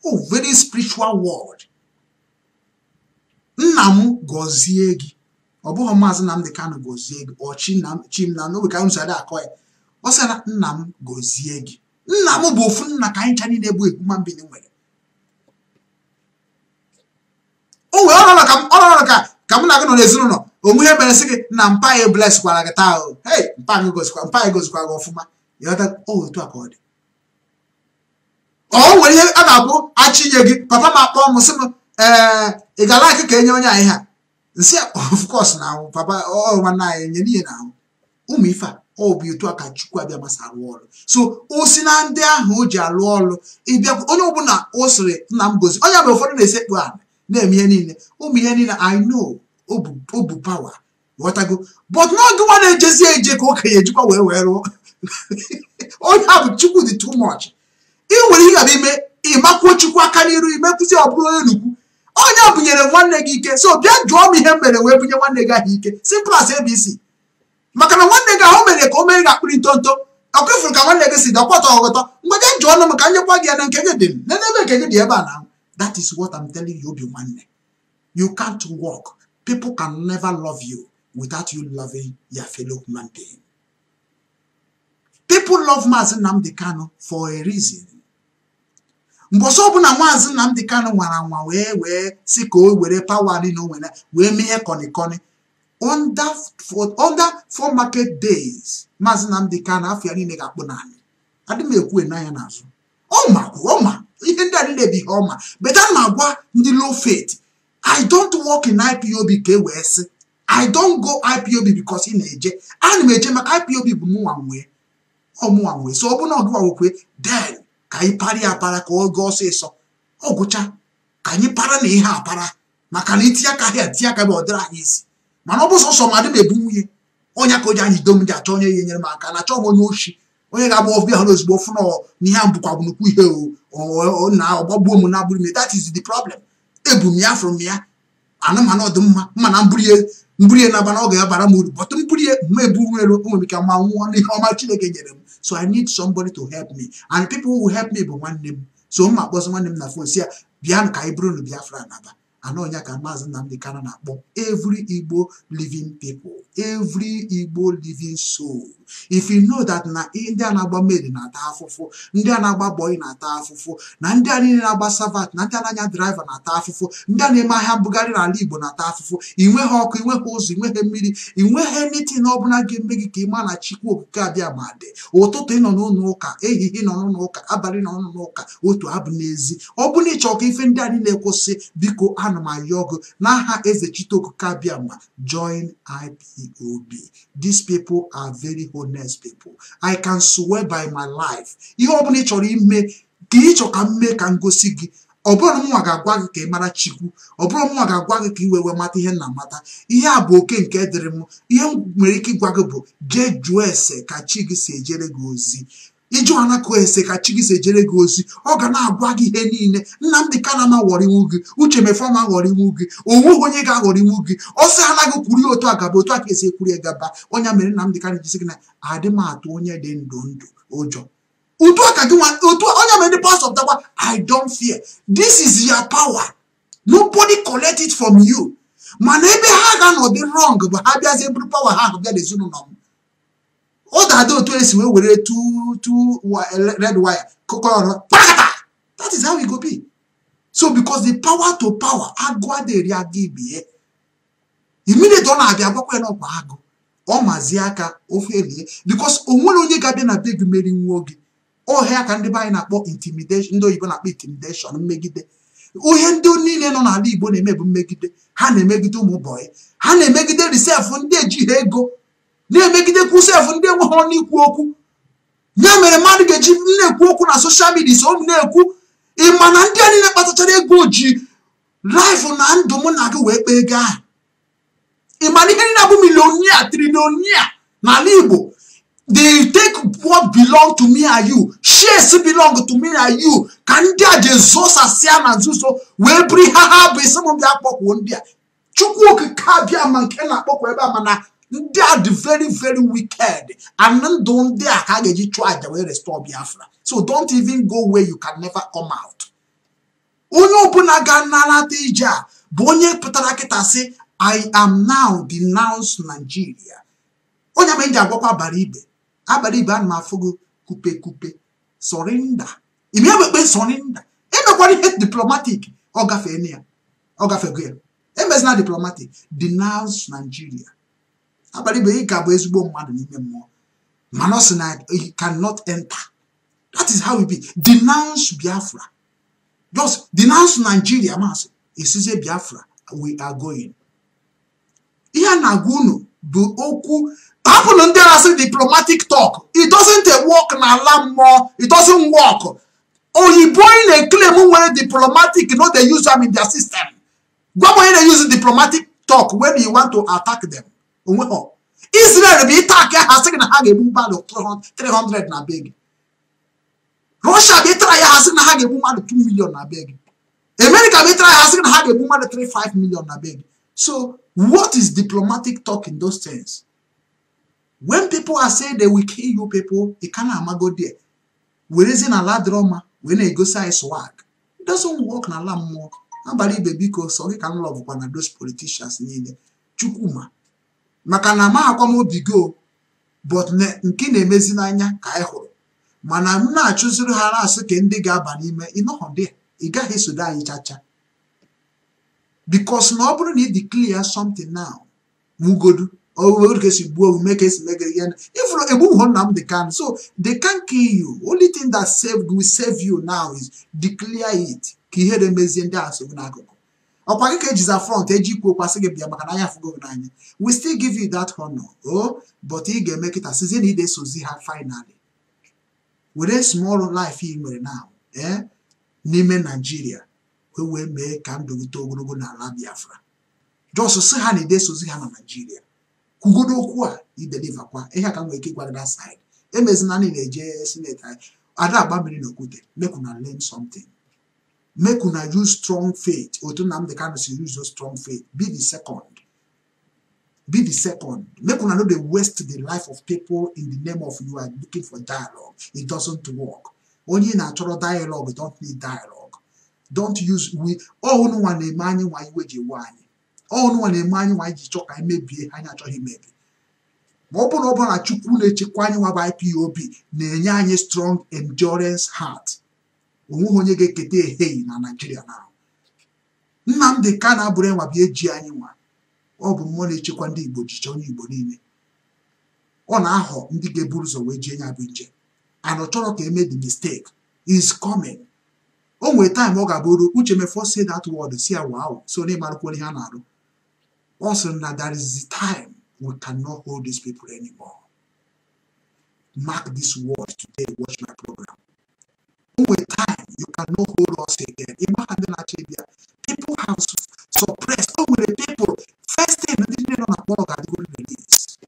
[SPEAKER 1] oh very spiritual word nna m gozie gị ọ bụghị maazị Nnamdị Kanụ gozie gị ọ Chimamanda ka m si akọ ya ọ sị na nna m gozie gị nna m bụ ofu nna ka anyị cha niile bụ ebu ma mbili nwere o wee ọrụ nọrọ ka m na-agụ nọ n'ezinụlọ onwe ihe mere sị gị na mpa anyị bleskwara gị taa ahụ hei mpa anyị gozikwa mpa anyị gozikwa gị ọfụma ịghọta oh, otu a ka ọ dị ọ nwere ihe a na akpụ achị inye gị papa m akpọ m sị m ee ị gala akị ka enye onye anyị ha nsị of course na anwụ papa nwanne anyị nye n'ihe na ahụ ụmụ ife a ọ bụ etu a ka chukwu abịa masa arụ ọrụ so o si na ndị ahụ o ji alụ ọrụ ịbịa onye ọbụla o siri nna m gozi onye bụ ụfọdụ na-esekpu ala na-eme ihe niile ụmụ ihe niile i obu pawa ghọtago but na nwa na-ejezi eje ka okenye ejikwa wee wee rụọ onye a bụ chukwu dị too much ị nwere ihe ime ịmakwuo chukwu aka n'iru imekwụzi ọ bụrụ onye nnukwu onye bunyere nwanne gị ike so bịa jụọ m ihe mere wee bunye nwanne gị ahụ ike simple as abc maka na nwanne gị ahụ mere ka o mere gị akpịrị ntonto ọkụ ifuru ka nwanne gị si dị ọkwọtọ ọghọtọ mgbe gị jụọ nụ m ka nyekwa gị ya na nke gị dị m n'ebe nke gị dị ebe a na that is what I'm telling you obi nwanne you can't walk People can never love you without you loving your fellow human being. People love Maazị Nnamdi Kanu for a reason. mbọsị ọbụla Maazị Nnamdi Kanu nwara nwa wee wee si ka o were pawa niile o nwere wee mee ihe kọnịkọnị under four market days Maazị Nnamdi Kanu afọ ya niile ga-akpụ naanị adị m ekwu na ya n'azụ ọma ọma ihe ndị a niile bụ ihe ọma beta na agwa ndị low faith I don't work in IPOB ka e wee sị I don't go IPOB because ị na-eje ana m eje maka IPOB bụ mụnwa nwee ọmụnwa nwee so ọ bụ na ọgụwa nwekwe den ka anyị parịa apara ka ọ gaa ọsịsọ ọ gụcha ka anyị para na ihe apara maka na itinye aka ha etinye aka bụ ọ dịrị anyị isi mana ọ bụ ma madị m ebu nwunye onye ka o ji anyị do ji achọ onye ga-enyere m aka na-achọ m onye ochi onye ga-agba ọbịa ha ozugbo fụna n'ihe a bụkwa bụ ihe na ọgbagbuo m na agbụrụ m that is the problem ebu m ya fụrụ m ya anamana ọdịmma mana mburie mburie na na ọ ga-abara m uru bọtụ mburie ma eburu nwere nwere ike ma nwụọ n'ihe ọma Chineke nyere m so I need somebody to help me and people who help me bụ nwanne m so mma akpọzi nwanne m na fon si ya bịanụ ka anyị bụrụ na Biafra naba anọnya ka maazị Nnamdi kana na-akpọ evry Igbo living people every Igbo living sol if you know that na ndị a na-agba meri na-ata afụfụ ndị a na-agba bọyị na-ata afụfụ na ndị a niile na-agba savat na ndị a na-anya draiva na-ata afụfụ ndị a na-eme ahịa mbụgharị n'ala Igbo na-ata afụfụ ịnweghị nweghị ọkụ ị nweghị ụzọ ị nweghị mmiri ị nweghị nitin ọbụla ga-eme gị ka ị maa na chikwu okike abịa ma dị ụtụtụ ị nọ n'ụlọ ụka ehihie nọ n'ụlọ ụka abalị nọ n'ụlọ ụka otu abụ n'ezi ọ bụrụ na ị ife ndị a niile kwụsị biko ana m ayọ gị n'aha eze chitokuka biama join ipob this people are very honest people i can swear by my life ihe ọbụla ị chọrọ ime ka ị ka m mee ka m gosi gị ọbụrụ bụrụ mụnwa ga-agwa gị ka ị mara chikwu ọ bụrụ mụnwa ga-agwa gị ka ị wee mata ihe na amata ihe a bụ oke nke dịrị m ihe m nwere ike ịgwa gị bụ jee jụọ ese ka chi gị si ejere gị ozi anakụ ese ka chi gị si ejere gị ozi ọ ga na-agwa gị ihe niile nna nnamdị kanama ghọrịnwu gị uche mefọma ghọrịnwu gị onweghị onye ga-aghọrịnwu gị ọsọ anaghị kwuru ya otu a gaba otu a ka esi ekwuru ya gaba onye mere nnamdị kana gị na adị m atụ onye dị ndụ ndụ ụjọ otu aka gị otu onye mere the pastor dagba i don't fear this is your power nobody collect it from you mana ebe ha ga-anọdị wrong bụ ha bịazie bụrụ power ha ahụ bịa n'ezinụlọ m ọ ga-adị otu esi wee were two red wire kụkọrọ that is how we go be so because the power to power agụ adịrị agụ ibie immediate ọ na-abịa agwakwa na ọkwa agụ ọ mazi aka ofe elie because o onye ga-abịa na be gị meri nwa oge ọhịa ka ndị anyị na-akpọ ndị oyibo na-akpọ intimidation mmegide ohe ndị niile nọ n'ala Igbo na-eme mmegide ha na-emegide ụmụ bọyị ha na-emegide risef ndị ejighị ego na-emegidekwu efu ndị enweghị n'ikwu okwu ya mere mmadụ ga-eji na-ekwu okwu na soshal midia so na-ekwu ma na ndị a niile kpatachara ego ji laịfụ na ndụ mụ na gị wee kpee ego ahụ ịma na ihe niile abụ n'ala Igbo they take what belong to me and you shares belong to me and you ka ndị a ji ezosasịa na nzuzo wee biri ha ha bụ isi m kpọkwuo ndị a chukwu okike abịa ma nke na-akpọkwu ebe a mana ndị a dị very very wicked and ndụ ndị a ka a ga-eji chụọ aja wee restore Biafra so don't even go where you can never come out onye ọbụla ga-anarata ije a bụ onye pụtara kịta sị I am now denounce Nigeria onye ma ji agwakwa abalị ibe abalị ibe ana m gị kupe kupe sọrinda ime ewekpe sọrinda emekwara ihe diplomatic ọ gafee ya ọ gafego ya emezina diplomatic denounce Nigeria abalị bụ ị ga-abụ ezigbo mmadụ n'ime mmụọ mana ọ na he cannot enter that is how we be denounce biafra just denounce nigeria masị esizie biafra we are going ihe a na-agwa unu bụ okwu hapụnụ ndị na diplomatic talk it doesn't work n'ala mmụọ it doesn't work oyibo anyị na-eklem nwere diplomatic no dey use am in their system gwa m onye na-use diplomatic talk when you want to attack them onwe ọ Israel bụ ịta aka ha sị na ha ga-egbu mmadụ 300 na be gị
[SPEAKER 2] Russia bụ ịtara ya
[SPEAKER 1] ha sị na ha ga-egbu mmadụ 2 million na be gị America bụ ịtara ya ha sị na ha ga-egbu mmadụ 35 million na be gị so what is diplomatic talk in those things when people are saying they will kill you people it ka amago there werezi na ala dịrọ mma wee na-egosi anyị swag it doesn't work na n'ala mmụọ abalị ibe biko sọ gị ka m lọbụkwa na those politicians niile Chukwuma maka na ma akwa m obi gị but nke na-emezi n'anya ka anyị hụrụ mana m na-achụziri ha na-asị ka ndị ga-aba n'ime ịnọghọ dị ị gaghị esodo anyị chacha bikos na ọ bụrụ na ị declare something now mugodu ogodu ka esi gbuo omume ka esi megere ihe ifụrụ egbuho nna m dị kan so they can kill you only thing that save will save you now is declare it ka ihere mezie ndị asogbu n'akụkụ ọkwa gị ka ejiza front eji ikwu okwu gị bịa maka na n'anya we still give you that honor o oh, but ị ga-eme kịta sizie na ị ha finally were small life ị nwere na eh, n'ime naijiria wee wee mee ka ndụ gị too ogologo na ala biafra jos si ha na ide ga ha na naijiria kwugodo okwu a ideliva kwa ihe a ka m nwere ike side emezina na eje sineti anyị ada agba mmiri na okwute mekwu na learn something make una use strong faith otu nnamdi kanu si use strong faith be the second be the second make una no dey waste the life of people in the name of you are looking for dialogue it doesn't work onye ị na-achọrọ dialogue you don't need dialogue don't use we ọnụ nwa na-eme anyị nwa iwe ji we anyị ọnụ nwa na-eme anyị nwa ji chọọ ka anyị mebie anyị achọghị imebi ma ọ bụrụ na ọ bụrụ na chukwu na-echekwa anyị nwa bụ IPOB na-enye anyị strong endurance heart onweghị onye ga-eketa ehihie na naijiria na nnamdị ka na-abụrụ enwa bụ eji anyị nwa ọ bụ mmụọ na-echekwa ndị igbo jiche onye igbo niile ọ na-ahọ ndị ga-eburu ụzọ wee jie nya bụ nje and ọ chọrọ ka eme the mistake is coming o nwere taịm ọ ga-abụrụ uche mefọ say that word si awa ahụ so onye marakwa onye a na-arụ ọ sịrị na there is the time we cannot hold these people anymore mark this word today watch my program o nwere you cannot hold us again. Imagine Nigeria. People have suppressed. Oh, the people. First thing, they didn't know about God going to this.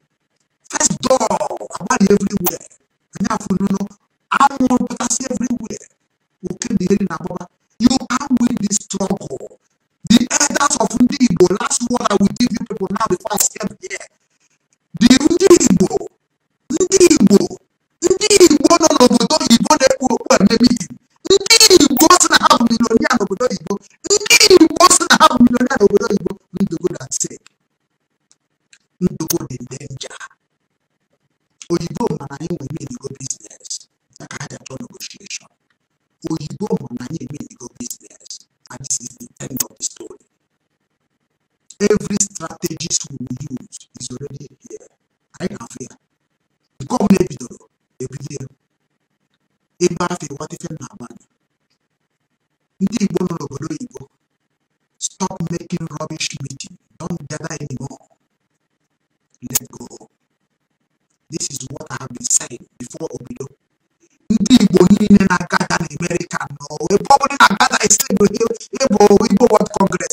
[SPEAKER 1] First door, about everywhere. And now, you know, I'm going to pass everywhere. Okay, the in about You can't win this struggle. The elders of Ndibo, last word I will give you people now before I step here. human being.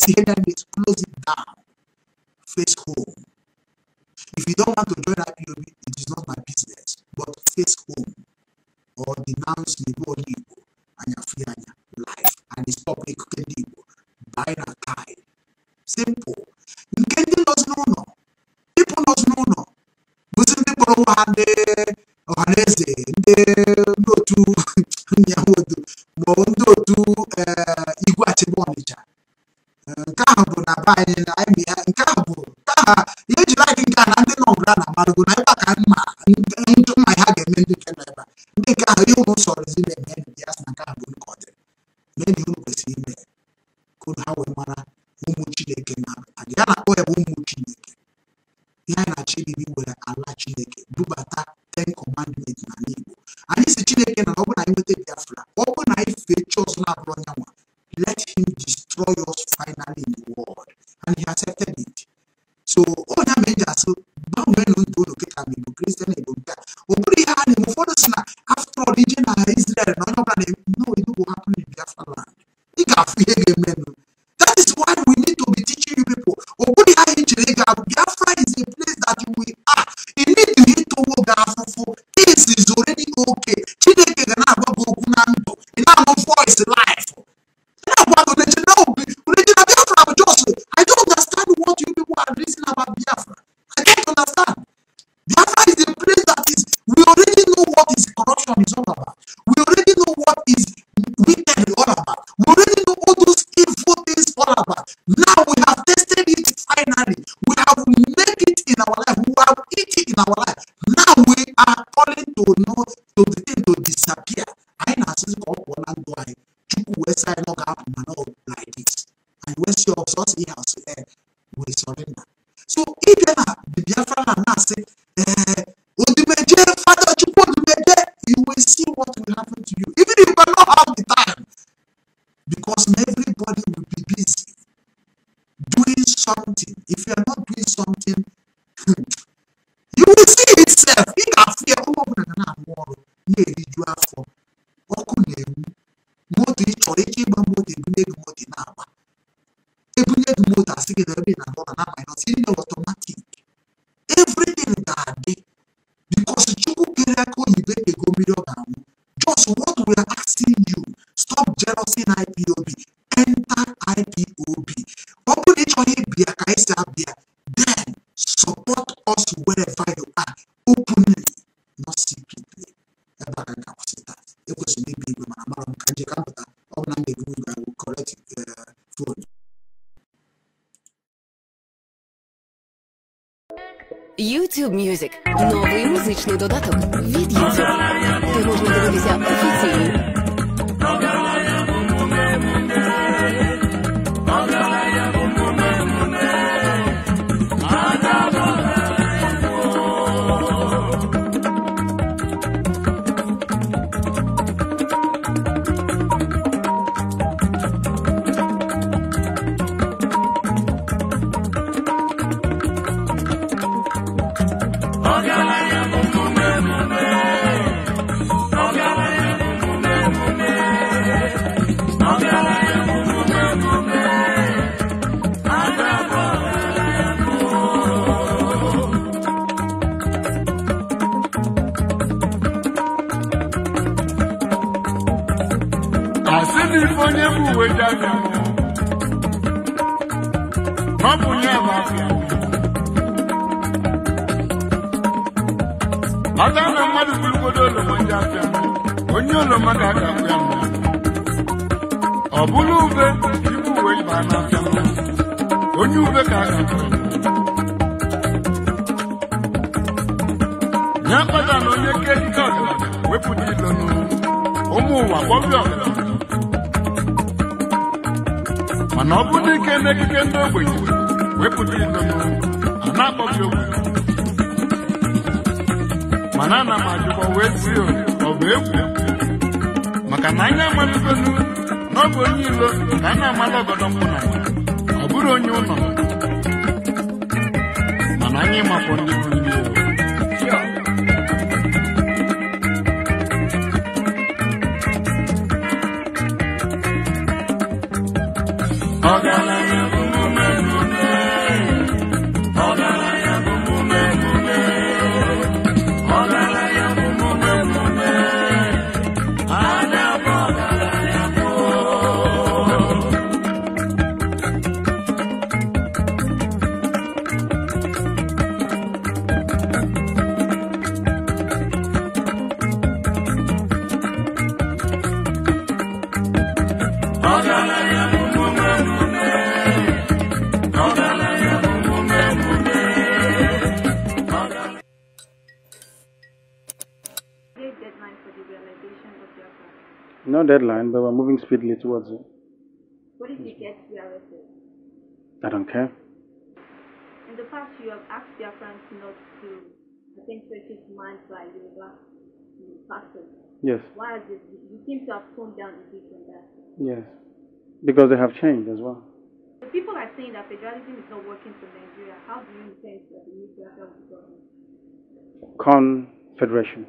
[SPEAKER 1] see enemies, close it down. Face home. If you don't want to join IPOB, it is not my business. But face home or denounce the body body na ọ bụrụ na ike n'ekike ndị ogbenye wepụta ido a na-akpọbi owu mana
[SPEAKER 2] ana m ajụkwa wee si ọ bụ egwu maka na anya amalugonu
[SPEAKER 1] na ọ onye ilo na a na-amala ọgọdọ mkpụna ọ bụrụ onye ụlọ mana anyị mapụ ndị
[SPEAKER 2] deadline, but we're moving speedily towards it.
[SPEAKER 3] What if you get arrested? I don't care. In the past, you have asked your friends not to, I think, manned by Yoruba person. Yes. Why is it? You seem to have toned down a bit on that.
[SPEAKER 2] Yes. Because they have changed as well.
[SPEAKER 3] The people are saying that federalism is not working for Nigeria. How do you intend that the new government?
[SPEAKER 2] Confederation.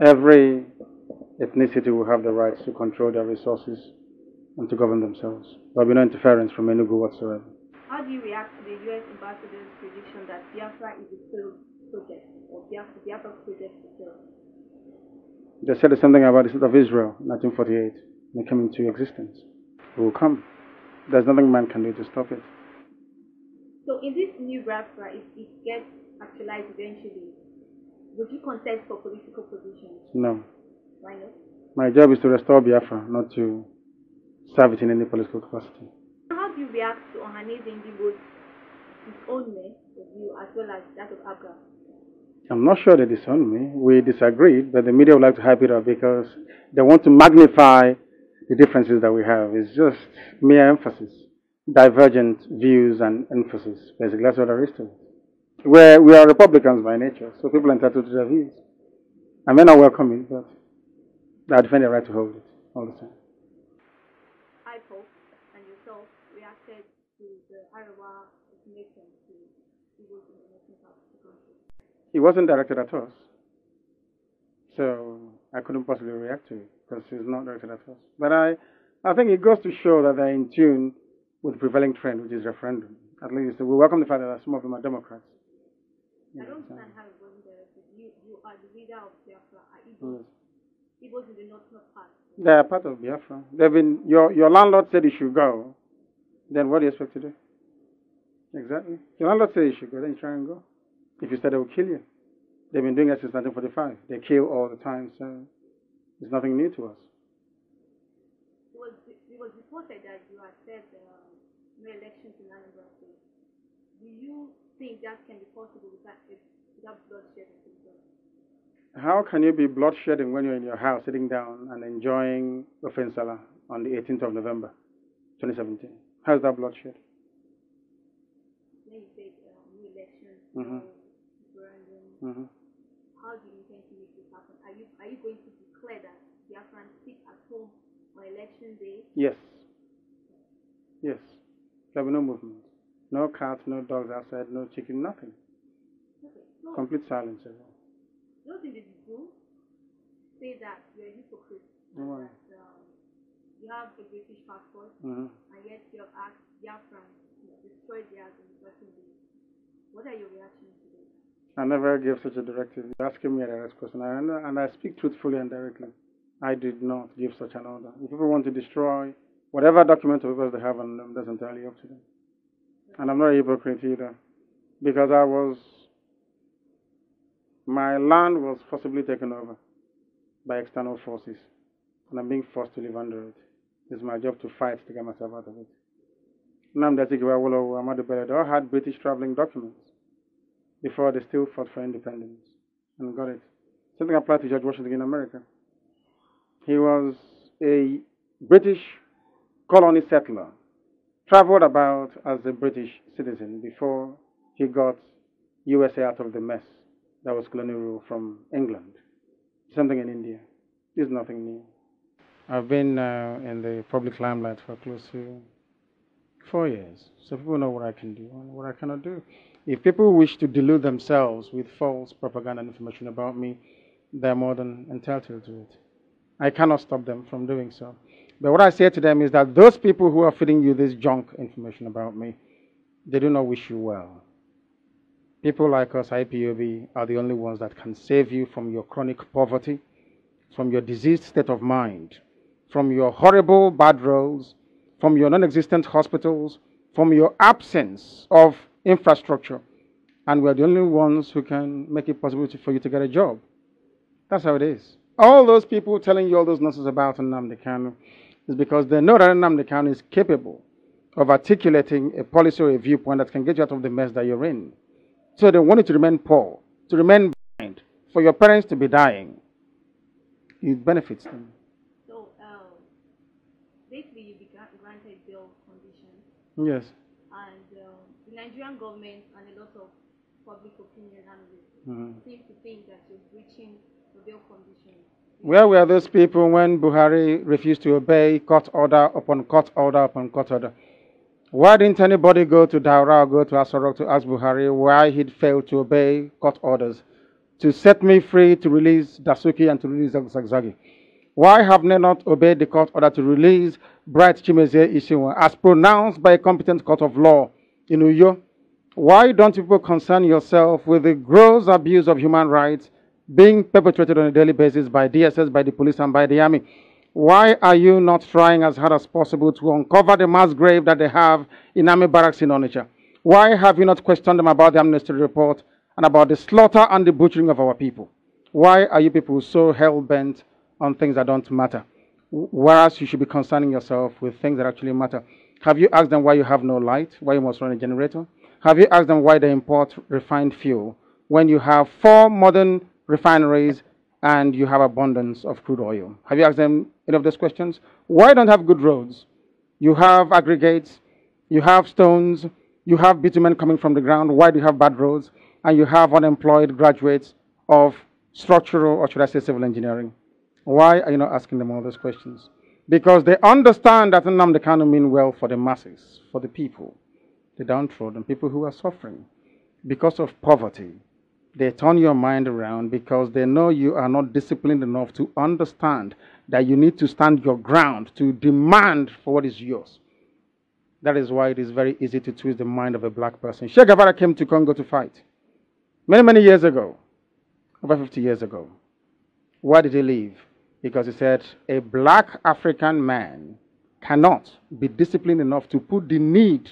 [SPEAKER 2] Every ethnicity will have the rights to control their resources and to govern themselves. There will be no interference from Enugu whatsoever.
[SPEAKER 3] How do you react to the U.S. ambassador's prediction that Biafra is a failed project or Biafra, Biafra project is failed?
[SPEAKER 2] They said something about the state of Israel in 1948 when it came into existence. It will come. There's nothing man can do to stop it.
[SPEAKER 3] So in this new Biafra, if it gets actualized eventually, would you contest for political positions?
[SPEAKER 2] No. My job is to restore Biafra, not to serve it in any political capacity.
[SPEAKER 3] How do you react to Ohanese Indigo's disownment of you as well as that of Abga?
[SPEAKER 2] I'm not sure they disown me. We disagreed, but the media would like to hype it up because they want to magnify the differences that we have. It's just mere emphasis, divergent views and emphasis. Basically, that's what there is to it. We're, we are Republicans by nature, so people are entitled to their views. I may not welcome it, but I defend their right to hold it all the time.
[SPEAKER 3] I hope and yourself reacted to the Arawa connection to the of
[SPEAKER 2] the country. It wasn't directed at us, so I couldn't possibly react to it because it's not directed at us. But I, I think it goes to show that they're in tune with the prevailing trend, which is referendum. At least we welcome the fact that some of them are Democrats.
[SPEAKER 3] I don't understand how it wasn't directed. You, you are the leader of the
[SPEAKER 2] Afra
[SPEAKER 3] in the northern part.
[SPEAKER 2] They are part of Biafra. They've been, your, your landlord said you should go. Then what do you expect to do? Exactly. Your landlord said you should go, then you try and go. If you said they will kill you. They've been doing it since 1945. They kill all the time, so it's nothing new to us.
[SPEAKER 3] It was, it was reported that you had said um, no elections in Anambra State. Do you think that can be possible without, without bloodshed?
[SPEAKER 2] how can you be bloodshedding when you're in your house sitting down and enjoying the Salah on the 18th of November 2017? How's that bloodshed?
[SPEAKER 3] When you said um, new elections, mm-hmm. Um, referendum, mm-hmm. how do you intend to make this happen? Are you, are you going to declare that the Biafran sit at home on election day?
[SPEAKER 2] Yes. Yes. There'll be no movement. No cats, no dogs outside, no chicken, nothing.
[SPEAKER 3] Okay. No. Complete silence those individuals say that you're a hypocrite. Why? That, um, you have a British passport, mm-hmm. and yet you have asked Biafrans to destroy theirs in certain What are your reactions to this?
[SPEAKER 2] I never gave such a directive. You're asking me a direct question, and, and I speak truthfully and directly. I did not give such an order. If people want to destroy whatever document or papers they have on them, that's entirely up to them. And I'm not a hypocrite either, because I was my land was forcibly taken over by external forces, and I'm being forced to live under it. It's my job to fight to get myself out of it. Namda they all had British traveling documents before they still fought for independence and got it. Something applied to George Washington in America. He was a British colony settler, traveled about as a British citizen before he got USA out of the mess that was colonial rule from England. Something in India. is nothing new. I've been uh, in the public limelight for close to four years, so people know what I can do and what I cannot do. If people wish to delude themselves with false propaganda information about me, they're more than entitled to it. I cannot stop them from doing so. But what I say to them is that those people who are feeding you this junk information about me, they do not wish you well. People like us, IPOB, are the only ones that can save you from your chronic poverty, from your diseased state of mind, from your horrible bad roads, from your non existent hospitals, from your absence of infrastructure. And we're the only ones who can make it possible for you to get a job. That's how it is. All those people telling you all those nonsense about Nnamdi Kanu is because they know that Nnamdi Kanu is capable of articulating a policy or a viewpoint that can get you out of the mess that you're in. So they want you to remain poor, to remain blind, for your parents to be dying. It benefits them.
[SPEAKER 3] So um, basically, you began granted bail conditions. Yes. And um, the Nigerian government and a lot of public opinion analysts mm -hmm. seem to think that you're breaching the bail
[SPEAKER 2] conditions. Where were those people when Buhari refused to obey court order upon court order upon court order? Why didn't anybody go to Daura or go to Asarok to ask Buhari why he'd failed to obey court orders to set me free to release Dasuki and to release Zagzagi? Why have they not obeyed the court order to release Bright Chimezie Ishiwa as pronounced by a competent court of law in Uyo? Why don't people concern yourself with the gross abuse of human rights being perpetrated on a daily basis by DSS, by the police, and by the army? Why are you not trying as hard as possible to uncover the mass grave that they have in army barracks in Onitsha? Why have you not questioned them about the amnesty report and about the slaughter and the butchering of our people? Why are you people so hell-bent on things that don't matter? Whereas you should be concerning yourself with things that actually matter. Have you asked them why you have no light, why you must run a generator? Have you asked them why they import refined fuel when you have four modern refineries and you have abundance of crude oil. Have you asked them any of those questions? Why don't have good roads? You have aggregates, you have stones, you have bitumen coming from the ground. Why do you have bad roads? And you have unemployed graduates of structural, or should I say civil engineering. Why are you not asking them all those questions? Because they understand that Nnamdi Kanu mean well for the masses, for the people, the downtrodden, people who are suffering because of poverty, they turn your mind around because they know you are not disciplined enough to understand that you need to stand your ground, to demand for what is yours. That is why it is very easy to twist the mind of a black person. Che Guevara came to Congo to fight many, many years ago, over 50 years ago. Why did he leave? Because he said, a black African man cannot be disciplined enough to put the need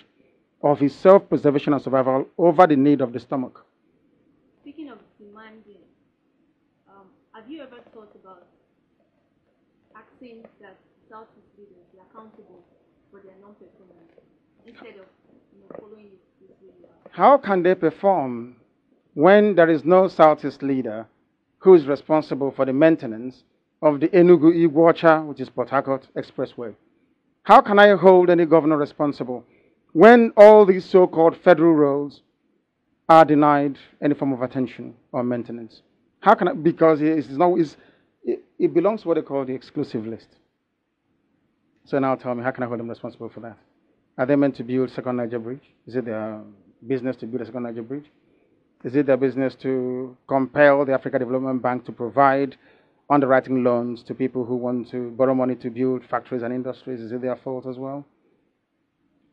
[SPEAKER 2] of his self preservation and survival over the need of the stomach.
[SPEAKER 3] Have you ever thought about asking that Southeast leaders be accountable for their non performance instead of you know, following this
[SPEAKER 2] How can they perform when there is no Southeast leader who is responsible for the maintenance of the Enugu Iguacha, which is Port Harcourt Expressway? How can I hold any governor responsible when all these so called federal roads are denied any form of attention or maintenance? How can I? Because it's now it's, it, it belongs to what they call the exclusive list. So now tell me, how can I hold them responsible for that? Are they meant to build second Niger Bridge? Is it their business to build a second Niger Bridge? Is it their business to compel the Africa Development Bank to provide underwriting loans to people who want to borrow money to build factories and industries? Is it their fault as well?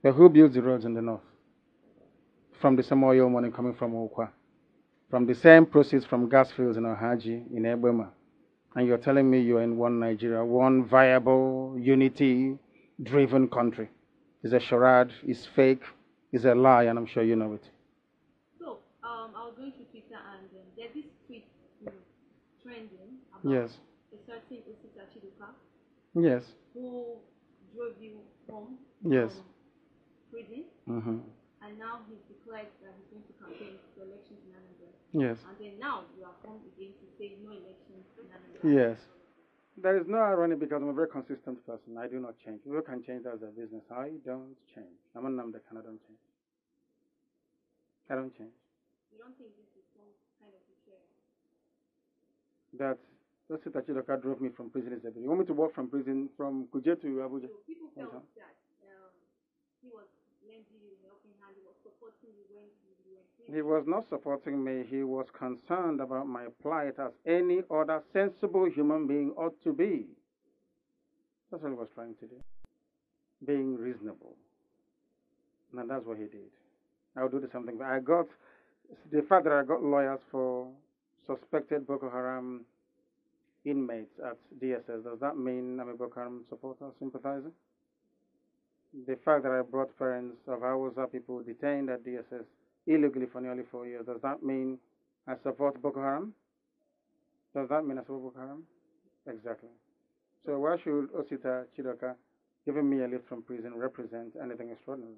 [SPEAKER 2] But who builds the roads in the north? From the oil money coming from Okwa from the same proceeds from gas fields in Ohaji, in Ebema, and you're telling me you're in one Nigeria, one viable, unity driven country. It's a charade, it's fake, it's a lie, and I'm sure you know it.
[SPEAKER 3] So, um, I was going to Twitter and um, there's this tweet you know, trending about yes. a certain Osita Chiduka. Yes. Who drove you home yes. prison. Mm-hmm. And now he's declared that he's going to campaign Yes. And then now you have come again to say
[SPEAKER 2] no elections. Yes. There is no irony because I'm a very consistent person. I do not change. People can change, as a business. I don't change. I'm a Namdekan, I don't change. I don't change.
[SPEAKER 3] You don't think this is some kind of a
[SPEAKER 2] That that's it that Chidoka drove me from prison is You want me to walk from prison from Kuje to Abuja? So people felt
[SPEAKER 3] that um, he was lending you a helping hand, he was supporting you when
[SPEAKER 2] he was not supporting me. He was concerned about my plight as any other sensible human being ought to be. That's what he was trying to do. Being reasonable. And that's what he did. I'll do the same thing. I got, the fact that I got lawyers for suspected Boko Haram inmates at DSS, does that mean I'm a Boko Haram supporter, sympathizer? The fact that I brought parents of Hausa people detained at DSS illegally for nearly four years. Does that mean I support Boko Haram? Does that mean I support Boko Haram? Exactly. So why should Osita Chidoka giving me a lift from prison represent anything extraordinary?